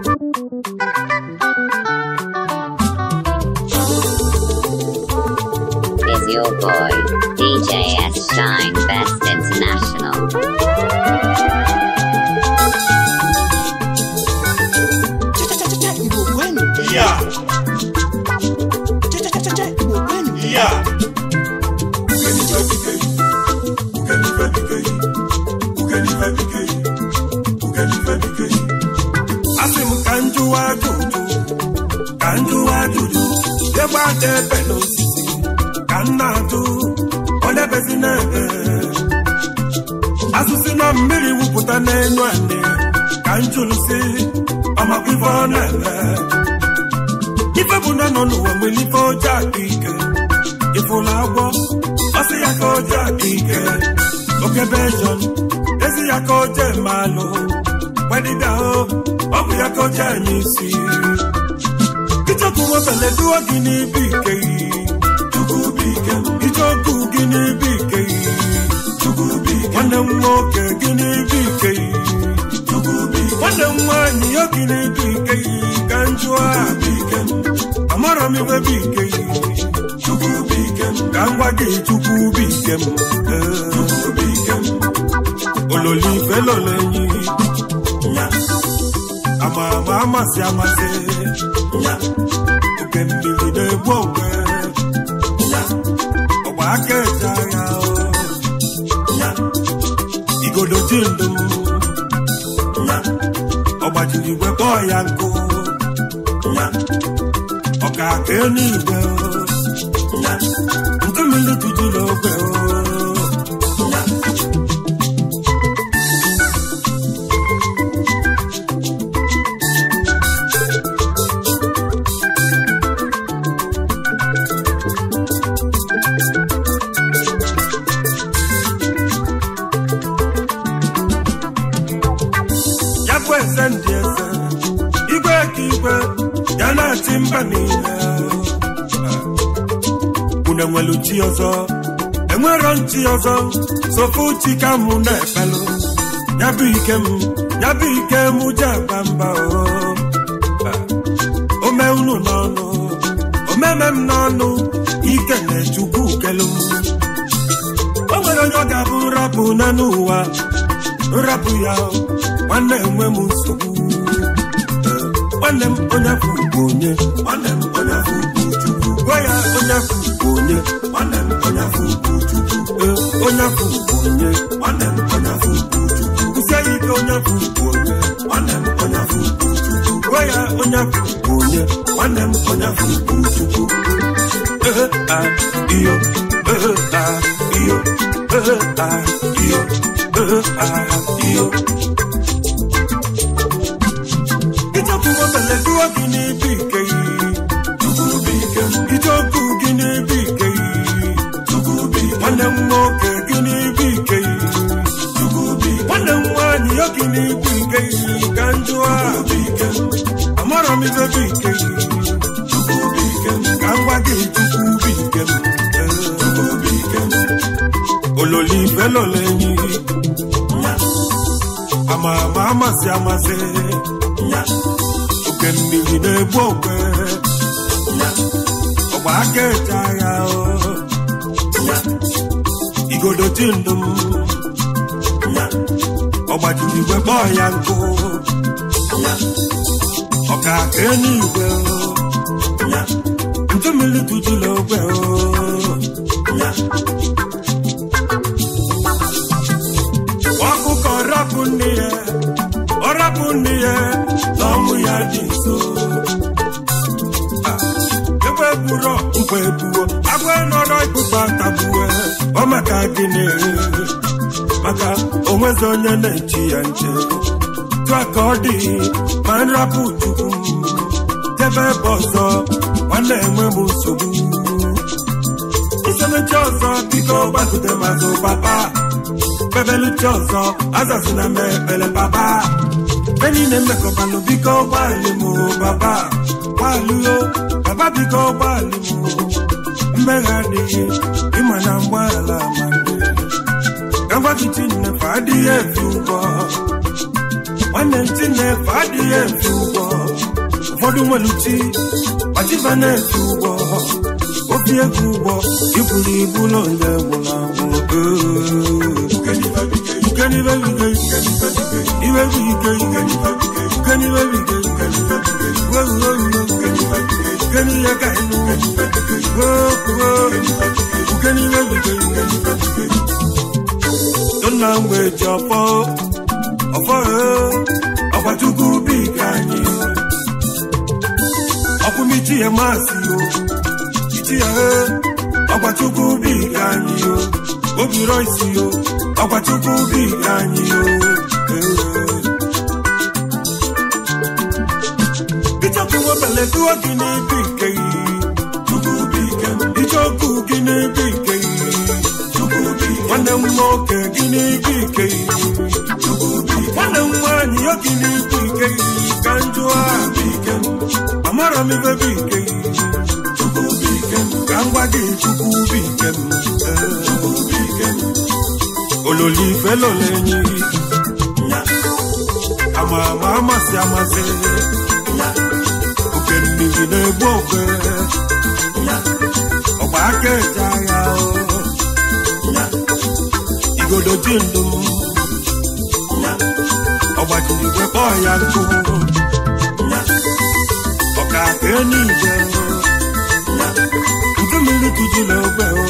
Is your boy, DJ S. Shine Best International. na-ebe n'osisi ka m na-atụ onye bezi na-ebe asụsị na mmiri wụpụta n'elu ane ka m jụrụ si ọmakwa ife ọ na-eme ife bụ na nọ n'ụwa nwere ife ọjọọ aka ike ịfụla agwọ ọsị ya ka ọjọọ aka ike okebe ejọn ezi ya ka ọjọọ eme alụ ọ bụ ya ka ọjọọ eme isi ichekwu wepele duo gị n'ibe ike icheoku gị n'ibe ike nwanne m nwoke gị n'ibe gị nwanne nwaanyị ya gị n'ibe ike ka m jụọ amara m iwe bụ ike ka m gwa gị chukwu bụ ike m ololife lọlenyi ama ama amasị amasị oke mmiri na-egbu onwe ọgba aka eji agha igodo ji ndụ ọgbajiri igwe kpọọ ya nkụ ọka aka enu igwe sofu chika mụ na-efelu ya bụ ike m ya bụ ike m ji agba mba ah, ome unu n'ọnụ omeme m n'ọnụ ike na-echukwu kelu o nwere onye ọ ga-abụ nrapụ na n'ụwa nrapụ ya nwanne enwe m nsogbu ah, nwanne m onye afọ onye nwanne m onye chukwu gwa ya onye afọ onye nwanne m onye onye afọ ugwu onye onye ya ike onye afọ onye nwanne m onye onye onye onye a a iyo ehe ike yi ike ijeokwu nwanne m nwoke dị n'igwe nke isi ka njụa amara m idobe ike ka ngwa gị tukwu bi ike ololo ife enyi ama ama amasị amasị oke na-egbu okwe ọgba aka eche igodo ti ndụ m gbajiri igwe kpọọ ya nkụ ọ ga-aka eluigwe ntumili tụtụla ogwe ọkụkọ rapụ nne ya ọ rapụ nne ya na ọmụ ya dị nso egbe gburo mgbe gbuo agwa nọrọ ikpụkpa tagbuwe ọ maka gịnị maka onwezi onye na-echi ya nche tụa ka ọ dị ma nrapụ chukwu debe ebe ọzọ nwanne enwe m nsogbu isemechi ọzọ biko gbazute mazụ papa bebeluchi ọzọ azazina m ekpele papa e niile mmekọbalụ biko gbalị m papa gbalụo papa biko gbalị m mmegha adịghị ịma na mgbaala na nnefe adịghị efe ụgwọ nwanne ntị nnefe adịghị efe ụgwọ ụfọdụ uti kpachiba na-efe ụgwọ obi ego ụgwọ iburu ibu na onye na mgbe ji ọfọ ọfọ e, ọkwachukwu bụ ike anyị e. ọkwụmichi ya masị o ichi ya e, ọkwachukwu bụ ike anyị o obiro isi o ọkwachukwu bụ anyị o ichọkụwebeleduo gị n'ebe ike yi gị n'ebe ike yi nwanne m nwoke n'ike ike nwanne m nwaanyị yogi n'ike ike ka njụa amara m ibe bụ ike ka m gwa gị chukwu bụ ike m ololo ife lolo enyi ama ama amasị amasị oke mmiri na-egbu okwe ọgba aka eje agha obodo ji na ọgbakọrọ igwe kpọọ ya nkụ ọka akụ enyi ije udu mmiri na ogbe o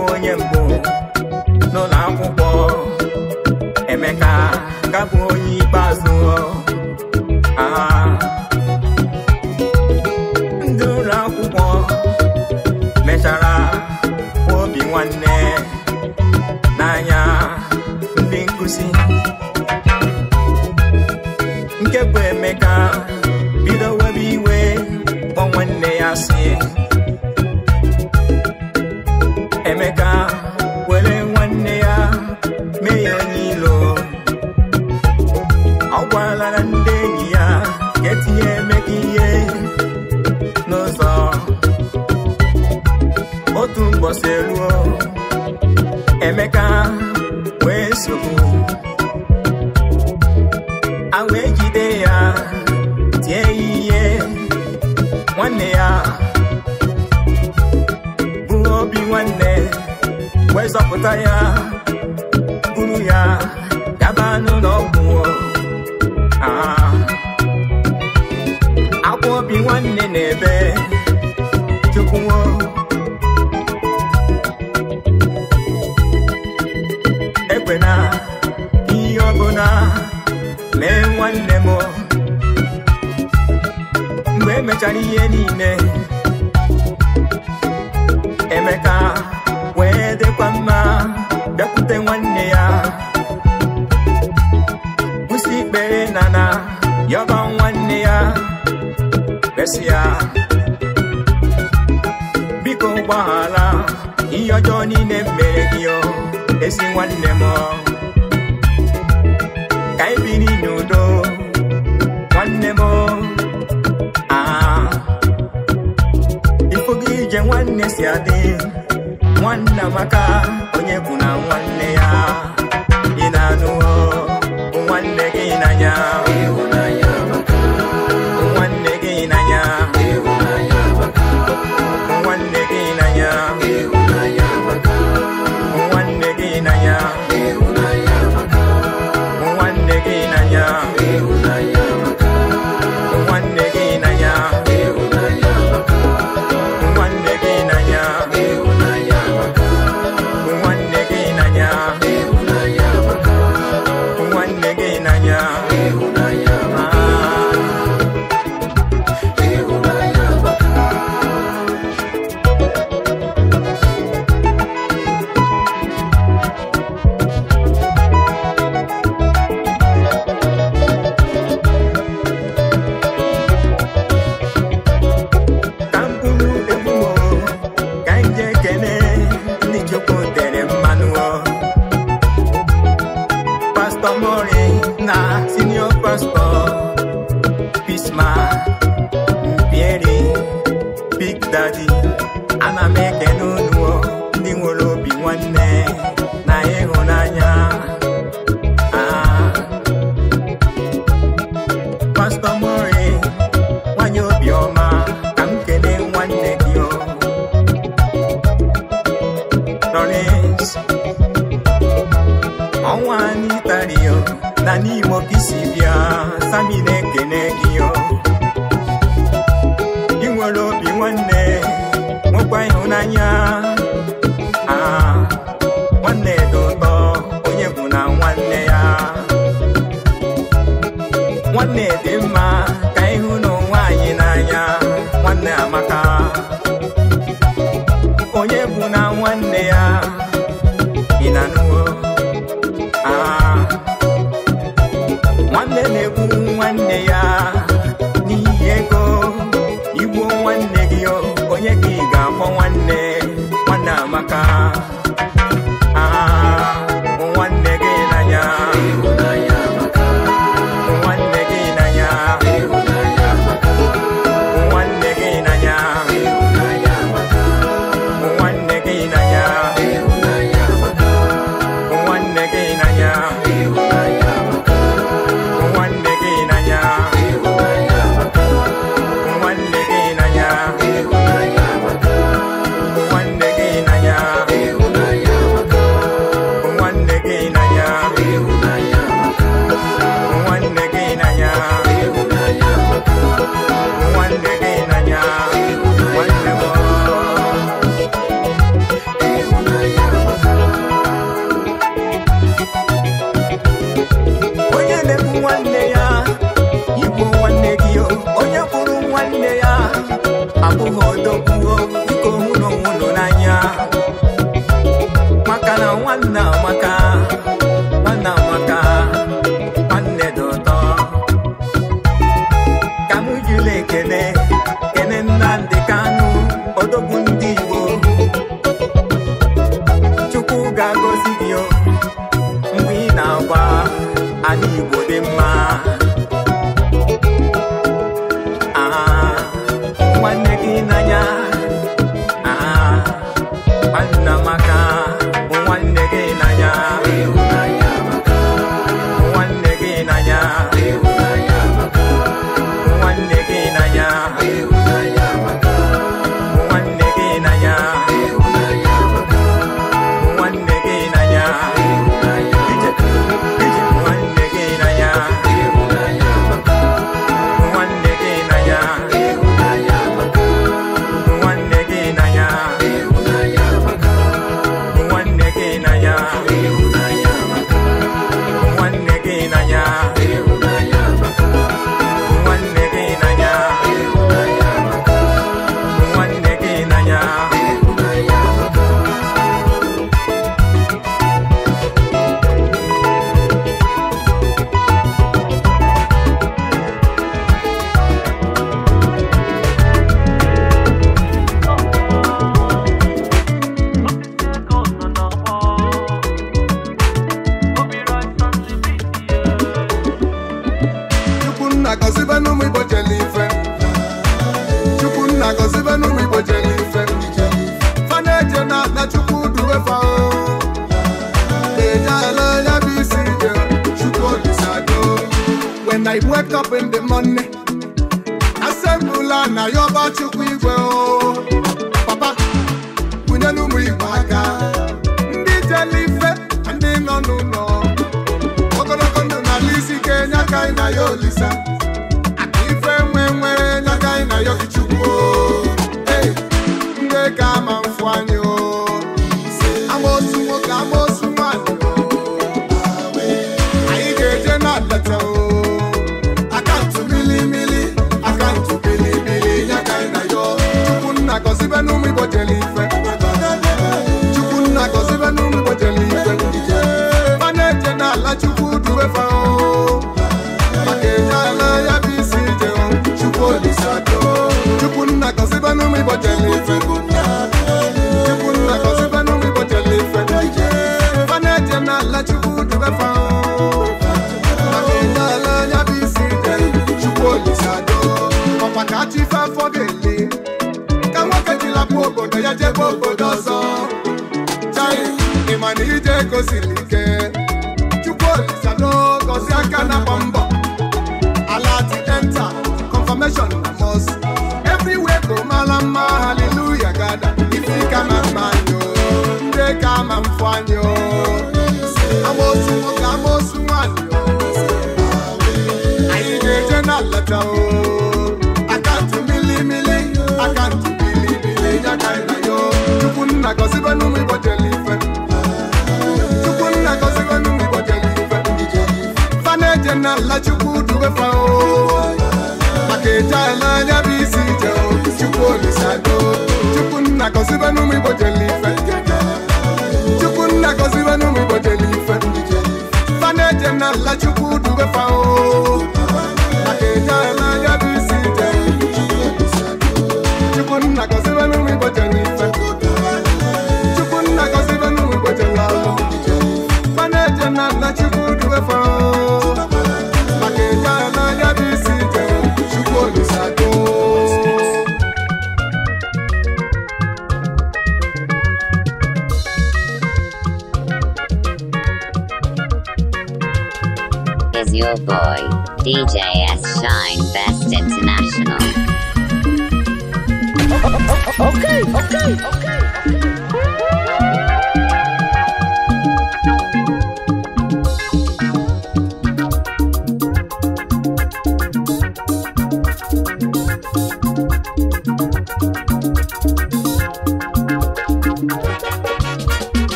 onye mgbe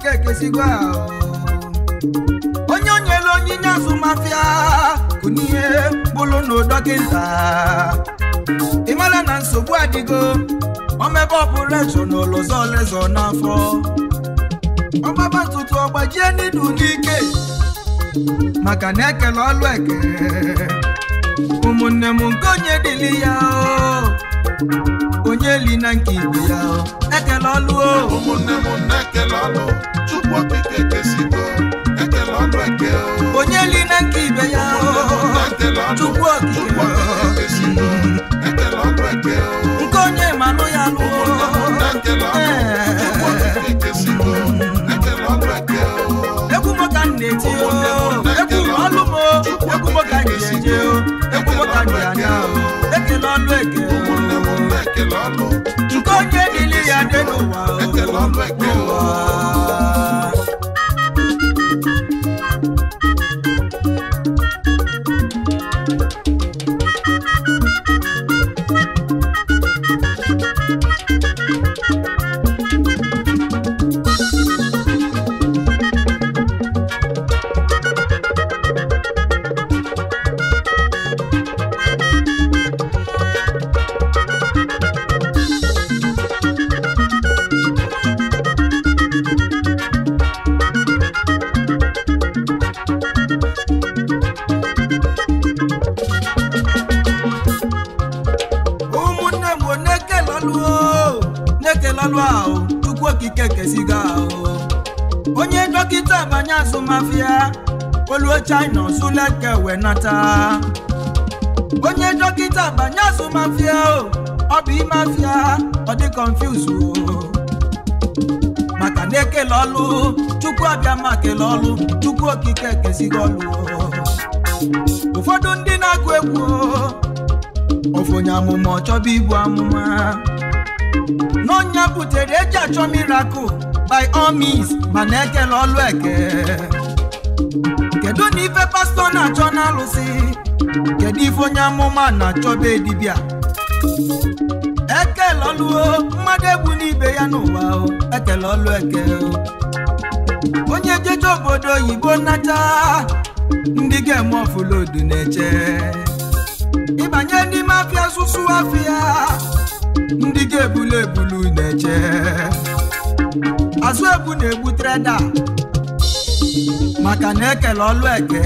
Chike kesigo oh. onye o nyelu onyinye azụ mafia kụnihe bụlụ n'ụdọkịta mara na nsogbu adịgo omebe ọpụreshọn n'ụlọzọ olezọ n'afọ ọgbaba ntutu ọgbajie n'idu n'ike maka na ekele ọlụ eke ụmụnne m nke onye dịli ya oh. onye li na nke ibe ya oh. ekele ọlụ ụmụnne m na-ekele ọlụ okike ekesigo ekele ọnụ eke onye li na nke ibe ya chukwu okike ekele ọnụ eke nke onye manụ ya nụ egwu eh. mụta m na-eti ekele ọlụ m egwu mụta ekele eke nke onye niile ya ule onye dọkịta banye azụ mafia o ọ bụ ime afia ọ dị o maka na ekele ọlụ chukwu abịa ma kele ọlụ chukwu okike ekesighị ọlụ ụfọdụ ndị na akụ egwu ofonye amụma ọchọba ibu amụma n'ọnya butere eji achọ miracle by all means mana ekele ọlụ eke kedu na ife pastọ na-achọ na alụsị kedu ife onye amụma na-achọbe dibịa ekele o mmadụ egwu n'ibe ya n'ụwa ekele ọlụ eke onye jeje obodo oyibo nnacha ndị ga-eme ọfụlodu na-eche ịbanye n'ime afịa asụsụ afịa ndị ga-ebulu ebulu na-eche azụ na-egbu treda maka na ekele ọlụ eke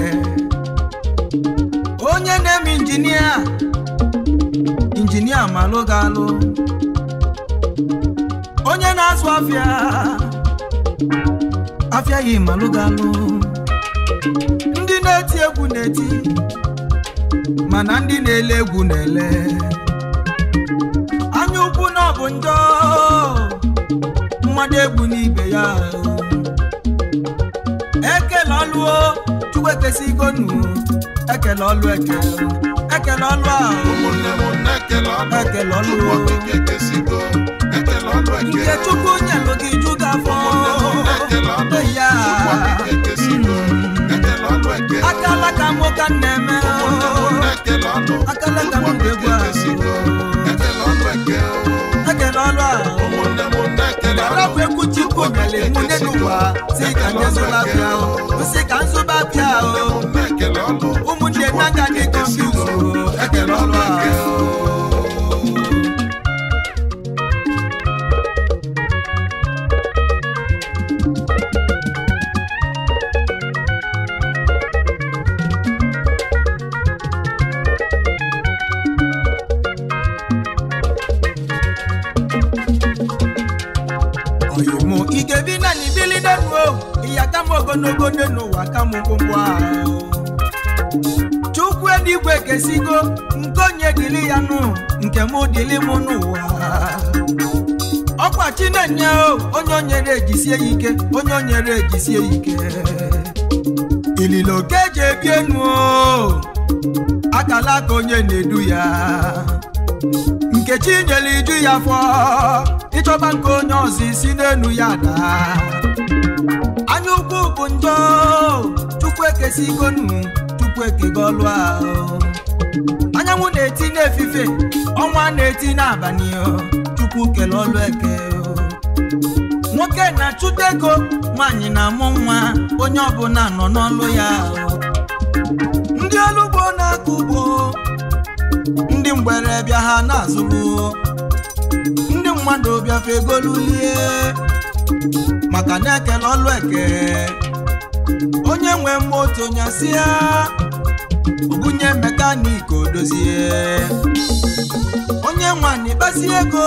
onye na-eme injinia injinia malụ ga-alụ onye na-azụ afịa afịa yi malụ ga-alụ ndị na-eti egwu na-eti mana ndị na-ele egwu na-ele anya ukwu na ọ bụ njọ mmadụ egwu n'ibe ya ọlụo chukwu ekesi nu ekele ọlụ eke ekele ọlụ a ekele ọlụ nke chukwu nyelụ gị ju gị afọ ya akala ka nwoke na-eme akala ka m ga-egwu ekele ọlụ a konyale munenuwa sika nyezola o sika nsoba bia o umundenanga ni konduso ekelolwa o. ogologo n'ụwa kamụ mkpụmkpụ ahụ chukwu eluigwe kesigo nke onye dịrị ya nụ nke mụ dịrị mụ n'ụwa ọkwa chinenye onye onyere ejisie ya ike onye onyere ejisie ike ililo ka eji ebi enu akala ka onye na-edu ya nkechi nyere iju ya fọ ịchọba nke onye ọzọ isi n'elu ya daa bụ njọ tupu ekesigo nu tupu ekego ọlụ ahụ anyanwụ na-eti n'efife ọnwa na-eti n'abalị tupu kele ọlụ eke nwoke na-achụta ego nwaanyị na-amụ nwa onye ọbụla nọ n'ọlụ ya ndị ọrụ na-akọ ugbo ndị mgbere bịa ha na-azụgbu ndị mmadụ bịafe egolulie maka na-ekele ọlụ eke onye nwe moto nyasịa ugunye mekaniki odozie onye nwanyị kpasi ego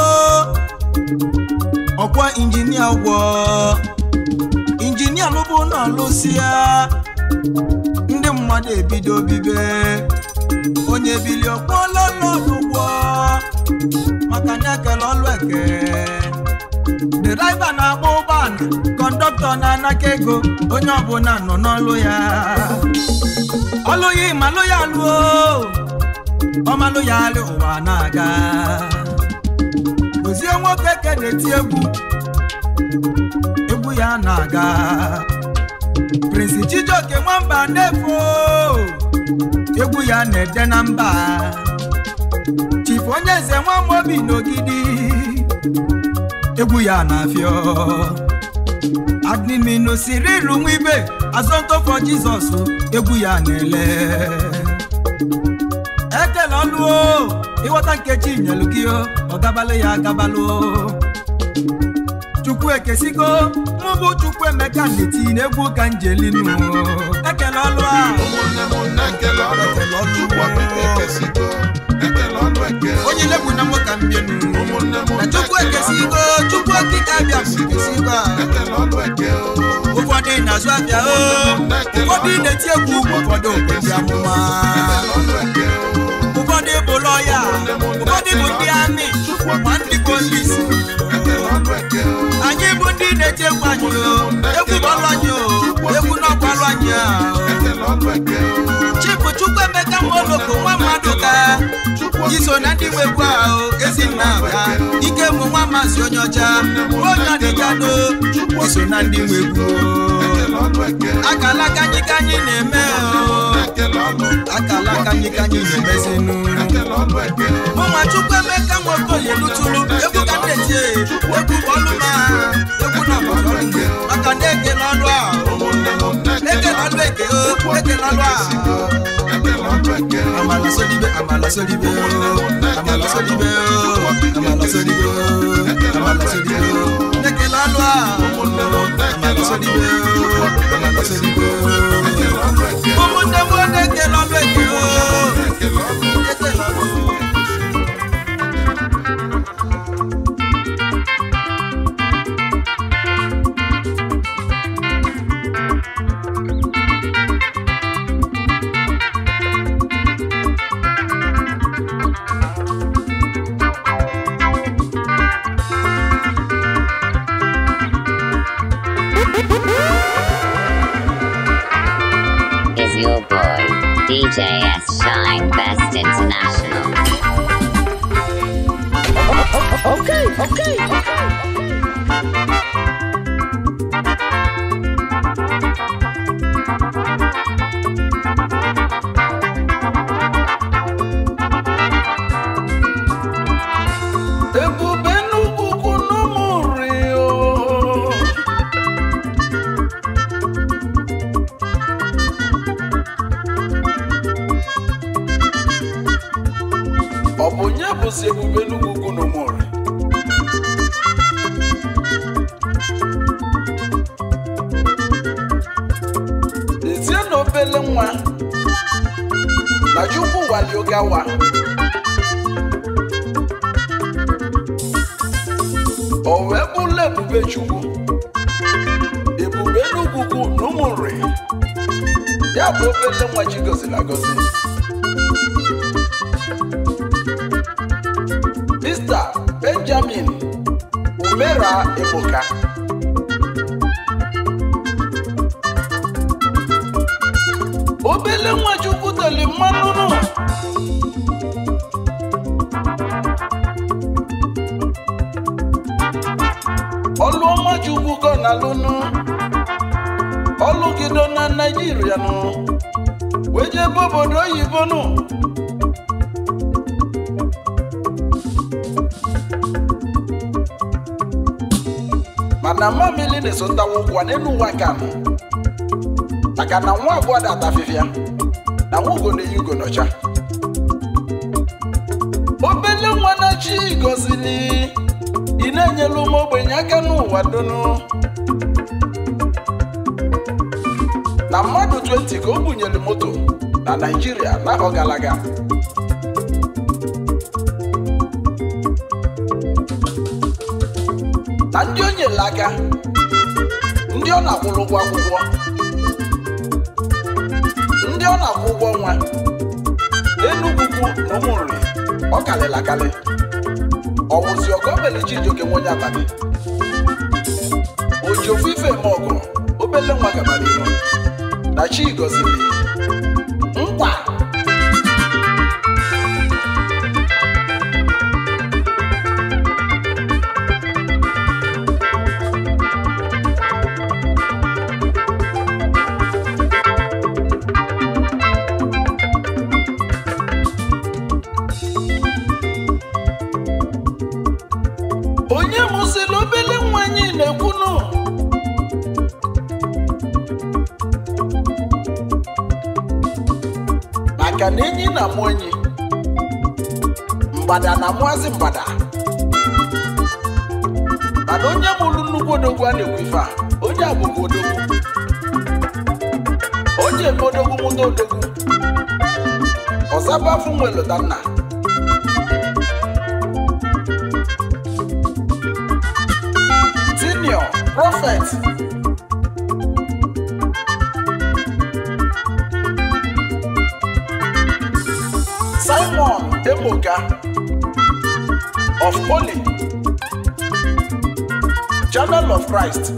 ọkwa injinia ụgwọ injinia lụbụ na ọlụsịa ndị mmadụ ebido bibe onye ebili ọkpọọla ọnọdụ ụgwọ maka na-ekele ọlụ eke draiva na-agba ụgbọala kọndọktọ na-anaka ego onye ọbụla nọ n'ọlụ ya Ọlụghị ya ya lụọ ọmalụ ya alụ ụwa na-aga ozie nwoke ke na-eti egwu egwu ya na-aga Prince Chijioke nwamba na-efu egwu ya na-ede na mba Chifu onye eze nwa Amobi n'ogidi egwu ya na-afịa adiminu siri iru nwa ibe azọntọfọ jizọs egwu ya na-ele ekele ọnụ ịghọta nkechi nyelụ gị ọ gabalị ya agabalụ chukwu ekesigo mụbụ chukwu emeka na egwu n'egwu njeli njelinu ekele ọlụ a onye legbu na nwoke mbienu chukwu ekesigo chukwu okike abịa ekesigo ụfọdụ na-azụ abịa oh. ụfọdụ na-eti egwu ụfọdụ okezi amụma ụfọdụ bụ lọya ụfọdụ bụ ndị anị ma anyị bụ ndị na-echekwa anyị egwu ọlụ anyị egwu n'ọkwalụ anyị chipụ chukwu emeka moloko nwa mmadụ ka iso na ndị nwe egwu ahụ ezi nna aka ike mụ nwa mazi onye ọcha onye ọdịjado iso na ndị nwe akala kanyikanyi na-eme akala kanyikanyi na-emezinu ụmụ chukwu emeka nwoke oyelutulu egwu ka ndeji egwu bọlụma egwu na bọlụ maka na ekele a ekele ọlụ eke o amala amala amala amala amala ụmụnne m ekele ọnụ ekele your boy, DJ S. Shine Best International. okay, okay. okay. okay. bụzi ebube n'ugwu na ụmụọra ezie na obele nwa na chukwu waliogawa o wee bụrụ ebube chukwu ebube n'ugwu na ụmụnri ya bụ obele nwa chi goziri agozi Queen Umera Ebuka obele nwa Chukwu teli mmanụ ọlụọma Chukwu gọ na lụnụ ọlụgido na Naịjirịa nụ wee jebe obodo oyibo nụ na mmamili na-esotawa ụkwụ n'elu ụwa ka m maka na nwa abụọ dị ata na nwa ugo na-eyi ugo n'ọcha obele nwa na chi gozili ị na-enyelu ụmụ ogbenye aka n'ụwa donu na mmadụ 20 ka o bunyere moto na Naịjirịa na gara aga n'aka ndị ọ na-akwụrụ ụgwọ akwụkwọ ndị ọ na-akwụ ụgwọ nwa enugwu na ụmụnri ọ kalịrị akalị ọwụzi ọgọbele Chijioke nwenye abalị oji ofu ife eme ọgụ obele nwa gabara na chi gọziri bada na maazị bada mana onye mụrụ nnukwu odogwu a na ife a onye a odogwu onye eme odogwu mụta odogwu ọzaba afọ nwere lụta nna tinio prọfet of Holy, Journal of Christ,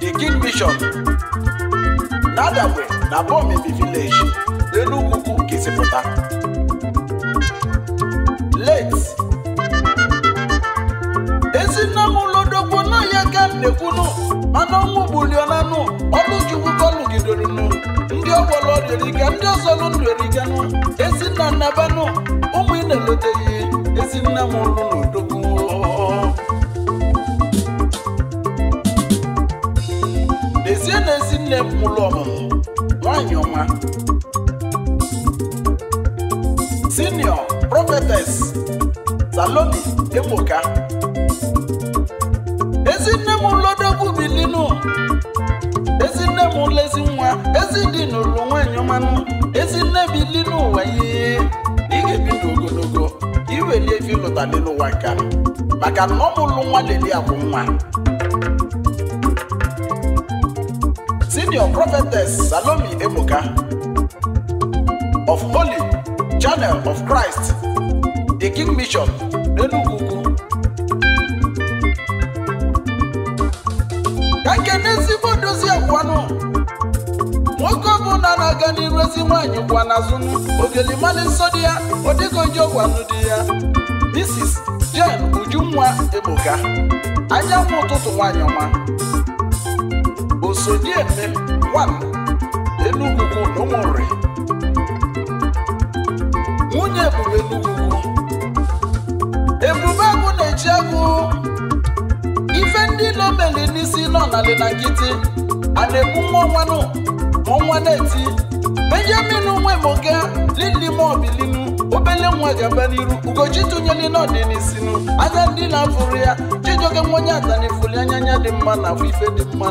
The King Vision, Nadagbe na Bomibi Village, Enugwu Kesipụta. Late ezinamụlodogbo na ya ka nnekwunu mana ọnwụ gbulionanụ ọlụjuwu kọlụgidorunu ndị ọgbọrọ ọdịriga ndị ọzọ ndụriganụ ezinna nnabanụ ụmụ ị na-eloteghị ezinna m ụlụ n'udo ide mụlụ ọmụmụ nwanyị ọma senior prophetess saloni ebuka ezi nne m lodogwu bilinu ezi nne m lezi nwa ezi dị n'ụlọ nwanyị ọmanụ ezi nne bilinu ụwa ihe ị ga-ebi ndụ ogologo iweli efi lụtalị maka na ọ mụlụ nwa leli akwụ nwa Your Prophetess Salome Emoka, of Holy Channel of Christ, the King Mission, Enugugu. Ka nkene ezigbo dozie kwanụ nwoke ọbụla na-aga n'iru ezi nwaanyị kwa n'azụ ogelimali nsọ di ya odegoji ọgwanụ di ya Mrs. Jane Ujumwa Ebuka Anya ụtụtụ nwaanyị ọma Sodieme 1 Enugwu N'Umuri nwunye Ebube Enugwu Ebube agụ na-eji agụ ife ndị nomeli n'isi nọ n'ali na nkịtị a na-egbu nwa nwanụ ma nwa na-eti Benjamin Nwemoga Lili Mobilinu obele nwa gaba n'iru ugochi tụnyere n'ọdịnisinu anya ndị na-afụrụ ya chijioke nwenye atanifuli anya anya dị mma na afọ ife dị mma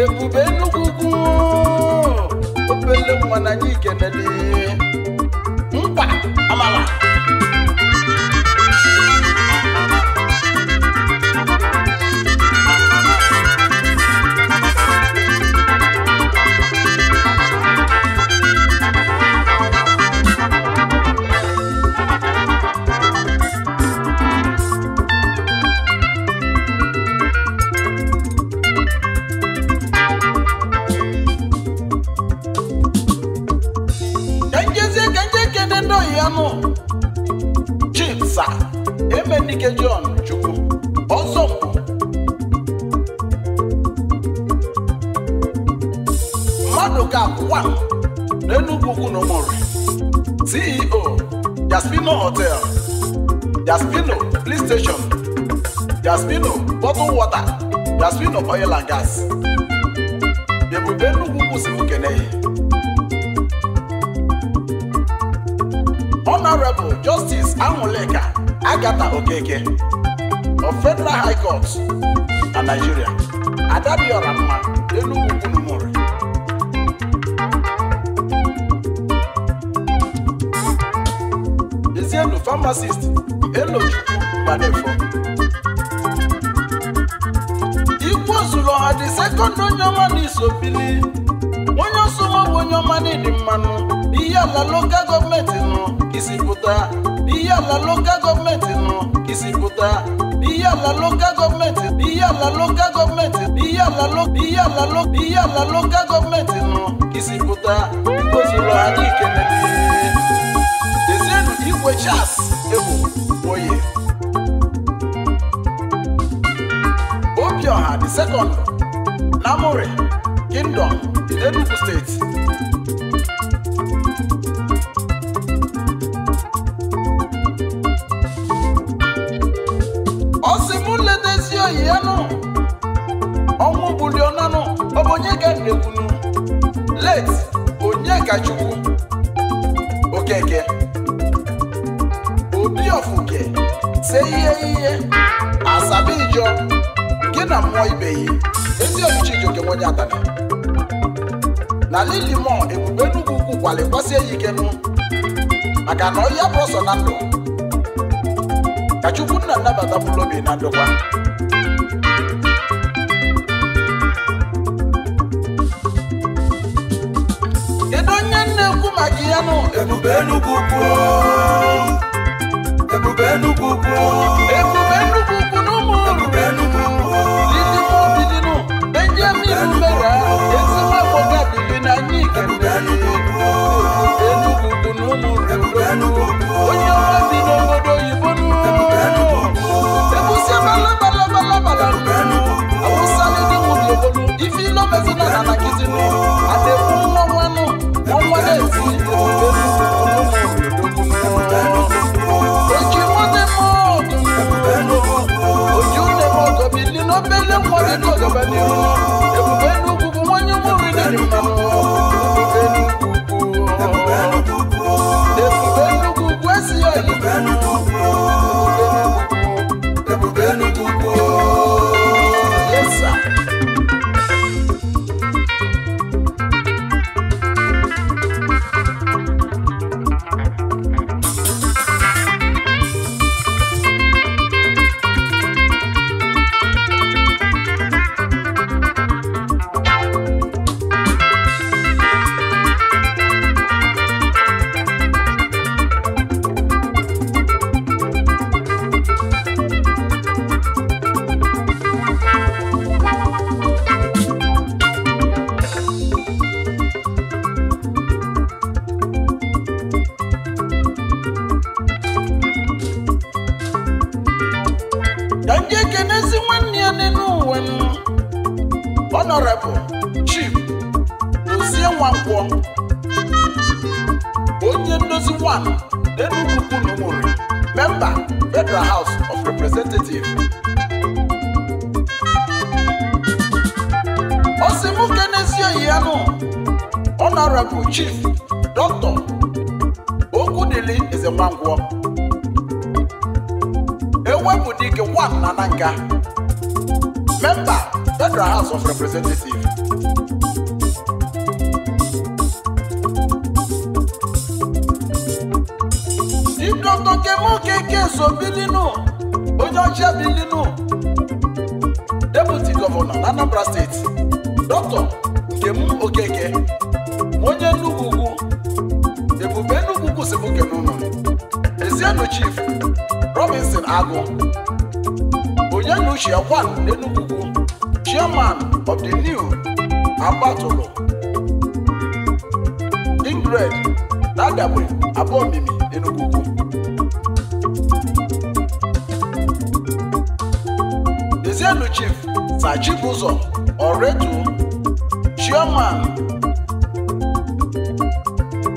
ebube nnukwu ugwu obele nwa na ike ikenele oil and gas ebube nnukwu kwụsịrị ukene honorable justice anwụleka agata okeke of federal high court na nigeria adadiora mma enugwu kwunumụrụ ezienu pharmacist elochukwu gbanefo mmadụ onye ọma na-esi opili onye ọsọnwabụ onye ọma na-edi mmanụ ihe ala lokal gọọmenti nọ isi pụta ihe ala lokal gọọmenti nọ isi pụta ihe ala lokal gọọmenti ihe ala lokal gọọmenti ihe ala ihe ala ihe ala lokal gọọmenti nọ isi pụta igbo zuru anyị ikele dezienu igwe chas egwu oye obi ọha dị sekọndụ Namore Kingdom, Enugu State nwa ibe yi ezi omuchi jioke nwenye atana na lilimo ebube nnukwu ukwu kwalikwasị ya ike nụ maka na ọhịa bụ ọsọ na ndụ ka chukwu nna nnabata bụrụ obi na ndụkwa kedu onye na-ekwu maka ya nụ ebube nnukwu ukwu ebube nnukwu ukwu ebube Honorable Chief Dr. Okudili Ezewangwo Ewebudike Wan Nananga Member Federal House of Representatives Di Dr. Kemo Keke Sobilinu Ojo Shebilinu Deputy Governor Anambra State agụ onye na uche ọkwa n'Enugu chairman of the new agbatụlụ ingred na adagbe abụọ mimi ezienu chief na Chibụzọ ọretu chairman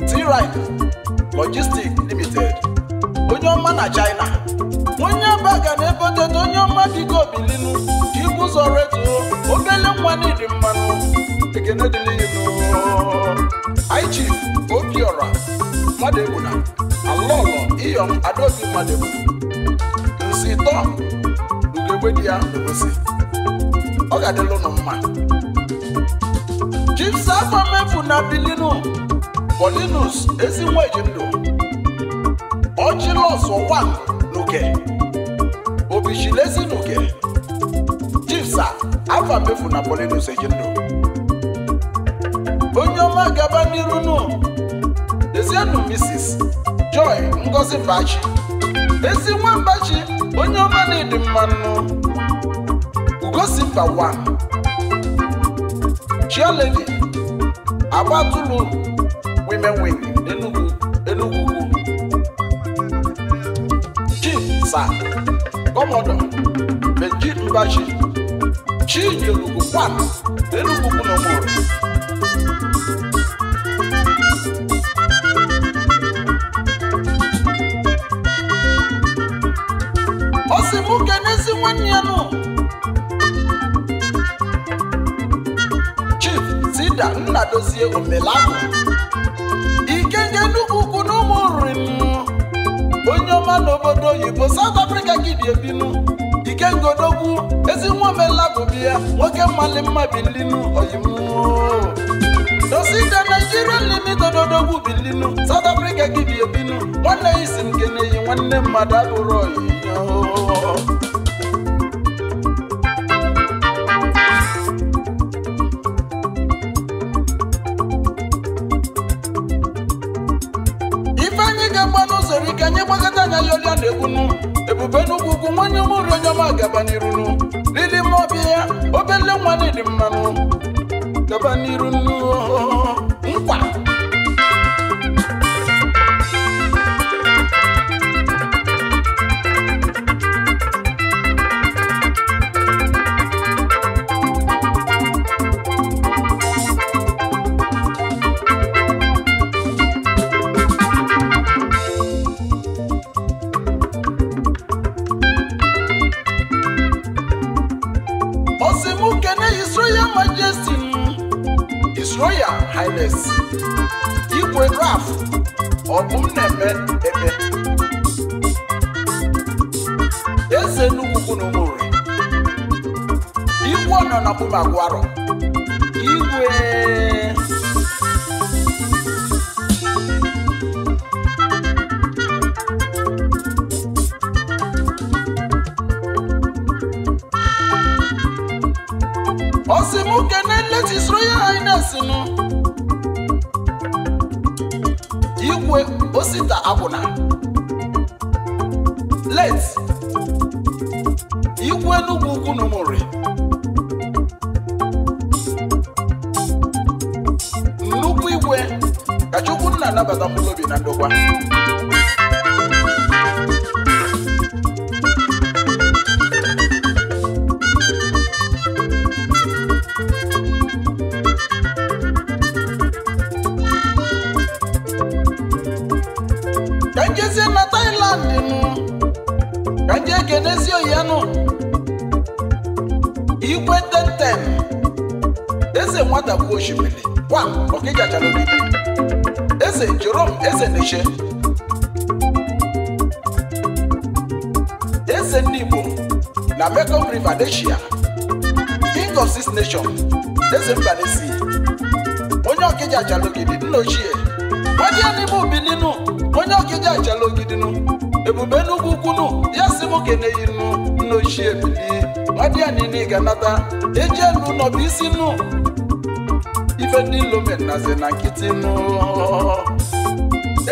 t logistic adeguna alọlọ iyom adaobi mmadụ nsi tọ ugegbe di ya n'obosi ọ ga-adịlụ nụ mma jimsa mefu na bilinu polinus ezi nwa eji ndụ ọchịlọs ọwa n'oke obichilezi n'oke afa mefu na polinus eji ndụ onye ọma gaba n'iru nụ nwannu Mrs. Joy Ngozi Bachi ezi nwambachi onye ọma na-edi mmanụ ugosimba wa chioledi agbatulu women wing Enugu Enugu sa kọmọdọ Benji Mbachi Chinyerugwu kwana ike omelabụ ike nke nnukwu ukwu na ụmụ nri onye ọma n'obodo oyibo South Africa gidiebinu ike ngodogwu ezi nwa omelabụ biya nwoke mmali mma bilinu oyibo dosite Nigerian limited odogwu bilinu South Africa gị bi ebinu nwanne isi nke na nwanne mmadụ abụrụ oyi egwunu ebube n'ugwugwu nwanye mụrụ onye ọma gaba n'irunu lili ma ọbịa ya obele nwanne dị mmanụ gaba n'irunu Asia king of six nation eze mba onye ọkịja ajala ogidi nna ochie onye onye ọkịja ajala ogidinu ebube n'ugwu ukwunu ya si m keneyi nnu nna ochie bili nwadịya niile ga elu nọ isi nnu ife ndị lomen nazi na nkịtị nnu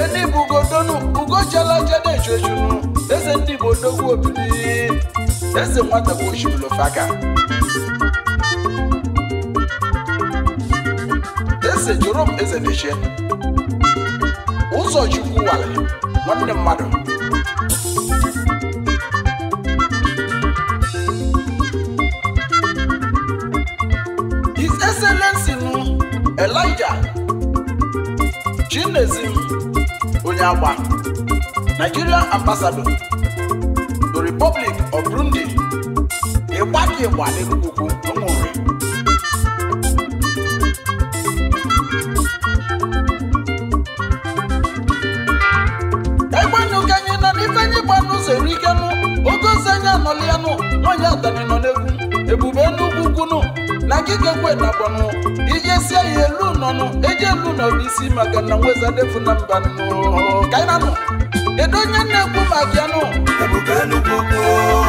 enibu ugodonu ugochiela jede ejuejunu eze eze nwata bụ ojibulofaka eze jorom eze mechie ụzọ chukwu wale nwanne mmadụ his excellency nu elijah chinezim onye agba nigerian ambassador onye Igbo adịghị ugwu ọ nwụrụ egbenụka anyị nọ n'ife anyị gba n'ụzọ erikenụ ogozi anyị anọlianụ nwanyị adani nọ ebube na ya elu nọnụ eji elu nọrụ isi maka na nwezadefu na mba kainanụ kedu onye na-ekwu maka anụ ebube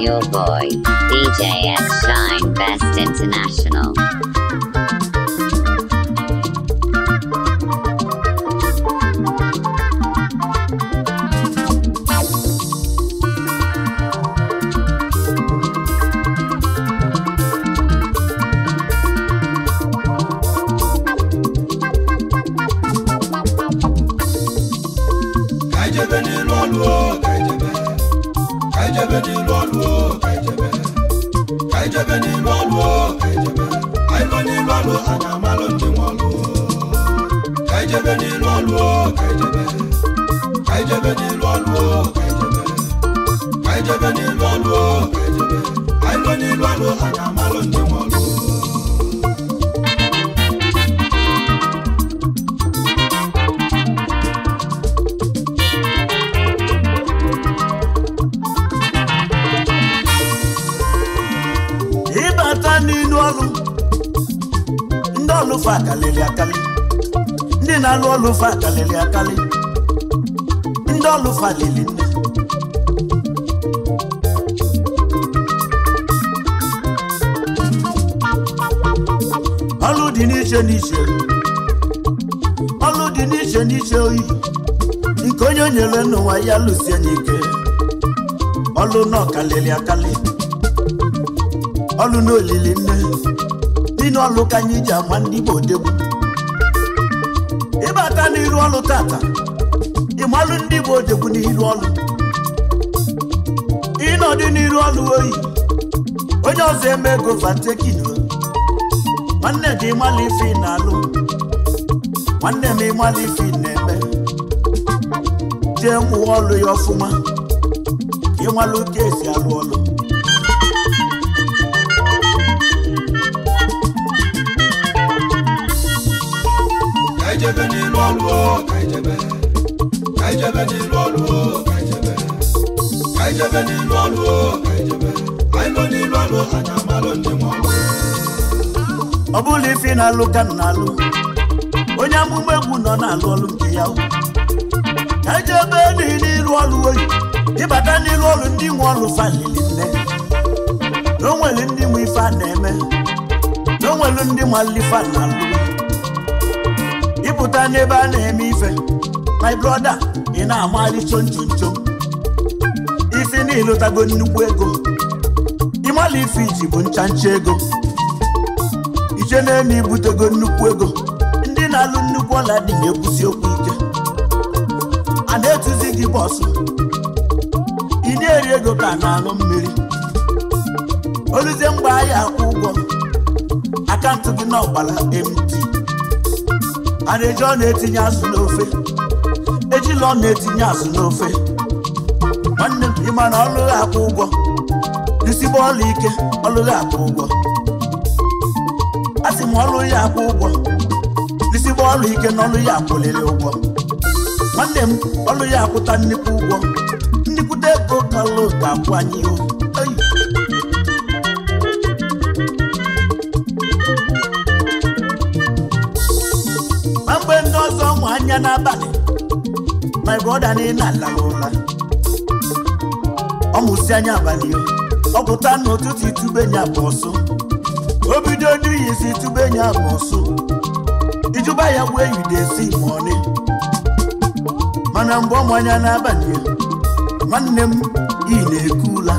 your boy, DJ X Shine. International ọlụfa akalịrị akali ndị na-alụ ọlụfa akalịrị akali ndị ọlụfa lili nne ọlụ dị n'iche n'iche ọlụ dị n'iche n'iche oyi nke onye nyere n'ụwa ya lụsie n'ike ọlụ na ọkalịrị ọlụ na nne n'iru ọlụ ka anyị ji agwa ndị Igbo odegwu ịbata n'iru ọlụ tata ịmalụ ndị Igbo odegwu n'iru ọlụ ịnọdụ n'iru ọlụ oyi onye ọzọ eme ego vatekin nwanne gị ịmalụ ife na-alụ nwanne m ịmalụ ife na-eme jee mụwa ọlụ ya ọfụma ịmalụ ka esi alụ ọlụ ijebe n'ịlụ ọlụ o ka ijebe ka ọlụ ka ijebe ọ bụla ife na-alụ ka m na-alụ onye amụma egwu nọ na-alụ ọlụ nke ya ka ijebe e n'ịlụ ọlụ oyi ịbata n'ịlụ ọlụ ndị nwe ọlụ falili nne na o ndị nwe ife a na-eme na o nwere ndị na-alụ ịpụta n'ebe a na-eme ife my brother ị na-amagharị chonchonchon isi niile ịlụtago nnukwu ego ịmala ife iji bụ nchancha ego ije na-eme ibutego nnukwu ego ndị na-alụ nnukwu ọla dị na-ekwusi okwu ike a na-etuzi gị bọsụ ị na-eri ego ka na-aṅụ mmiri oluzie mgbe ahịa akwụ ụgwọ akaụntụ gị na ọgbara mt a na-eji ọ na-etinye azụ n'ofe ojila ọ na-etinye azụ n'ofe nwanne m ịma na ọlụghị akwụ ụgwọ isigbo ọla ike ọlụghị akwụ ụgwọ asị m ọlụ ya akwụ ụgwọ isigbo ọla ike na ọlụ ya akwụliri ụgwọ nwanne m ọlụ ya akwụta nnukwu ụgwọ nnukwute ego kalụ ga-akwụ anyị ihu my brother na la ọ mụsị anya abalị ọ pụta n'ụtụtụ itubenya bụ ọsụ o bido enyi itubenya bụ ọsụ ijuba ya gbuo enyi esi mọni mana mgbe ọmụ anya n'abalị nwanne m iyi na-ekula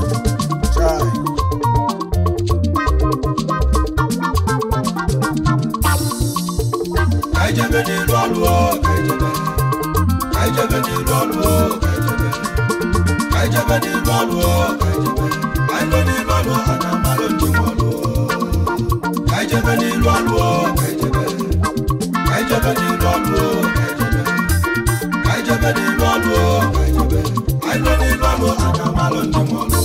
jẹbẹ nílùú àlùwọ kẹjẹbẹ kẹjẹbẹ nílùú àlùwọ kẹjẹbẹ àìlọ nílùú àlùwọ àdàmà ló ti wọ lọ kẹjẹbẹ nílùú àlùwọ kẹjẹbẹ kẹjẹbẹ nílùú àlùwọ kẹjẹbẹ kẹjẹbẹ nílùú àlùwọ kẹjẹbẹ àìlọ nílùú àlùwọ àdàmà ló ti wọ lọ.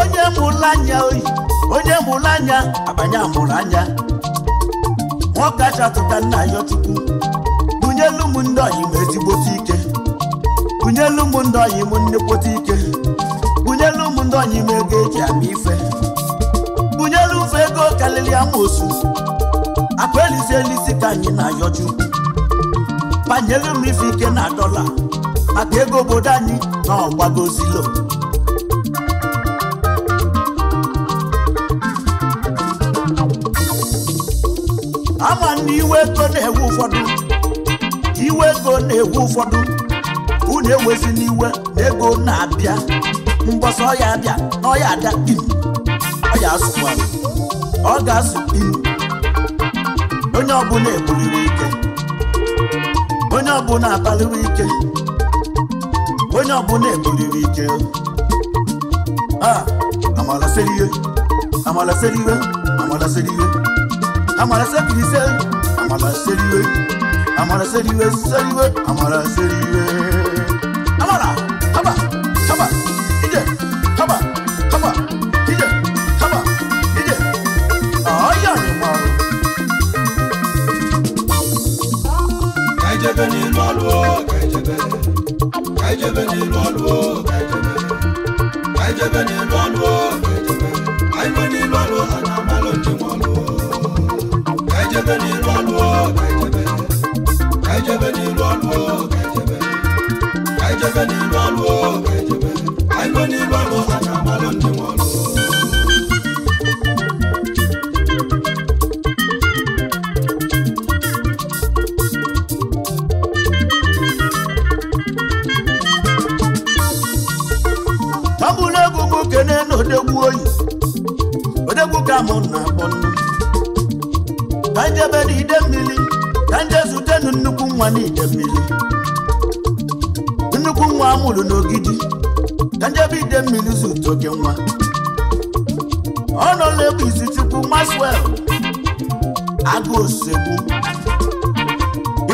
onye mụla anya oyi onye mụrụ anya abanye amụrụ anya nwoke achatụta nna ya chukwu bunyelu m ndị ọyị m ezigbote ike bunyelu m ndị ọyị m nnekwote ike bunyelu m ndị ọyị m ego eji ama ife bunyelu mfe ego karịrị amosu akpa elisi elisi ka anyị na-ayọ chukwu banyelu m ife ike na dọla maka ego obodo anyị na ọgbagozilo iwe ego na-ewu ụfọdụ iwe ego na-ewu ụfọdụ unu ewezi n'iwe na ego na-abịa mgbọsọ ọya abịa na ọya ada in ọya asụkwa ọ ga azụ in onye ọbụla ebuliri ike onye ọbụla abaliri ike onye ọbụla ebuliri ike a amalasịrị ihe amalasịrị ihe amalasịrị ihe amalasịrị ise àmàlà sẹ́ríwé àmàlà sẹ́ríwé sẹ́ríwé àmàlà sẹ́ríwé àmàlà.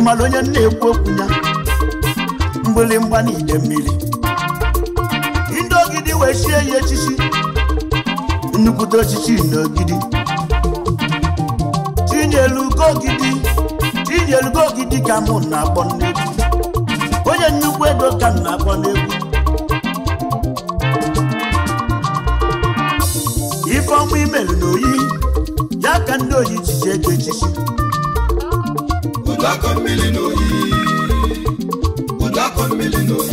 ịmara onye na-ekwu okwu ya mgbịrịgba na ide mmiri ndị ogidi wee sie ya echichi nnukwute ochichi n'ogidi. ogidi tinyelugo ogidi ka mụ na-akpọ n'egwu onye nnukwu ego ka m na-akpọ n'egwu ife ọmụ imelu n'oyi, ya ka ndị oyi chichi ego echichi ụdakọ mmiri n'oyi ụdakọ mmiri n'oyi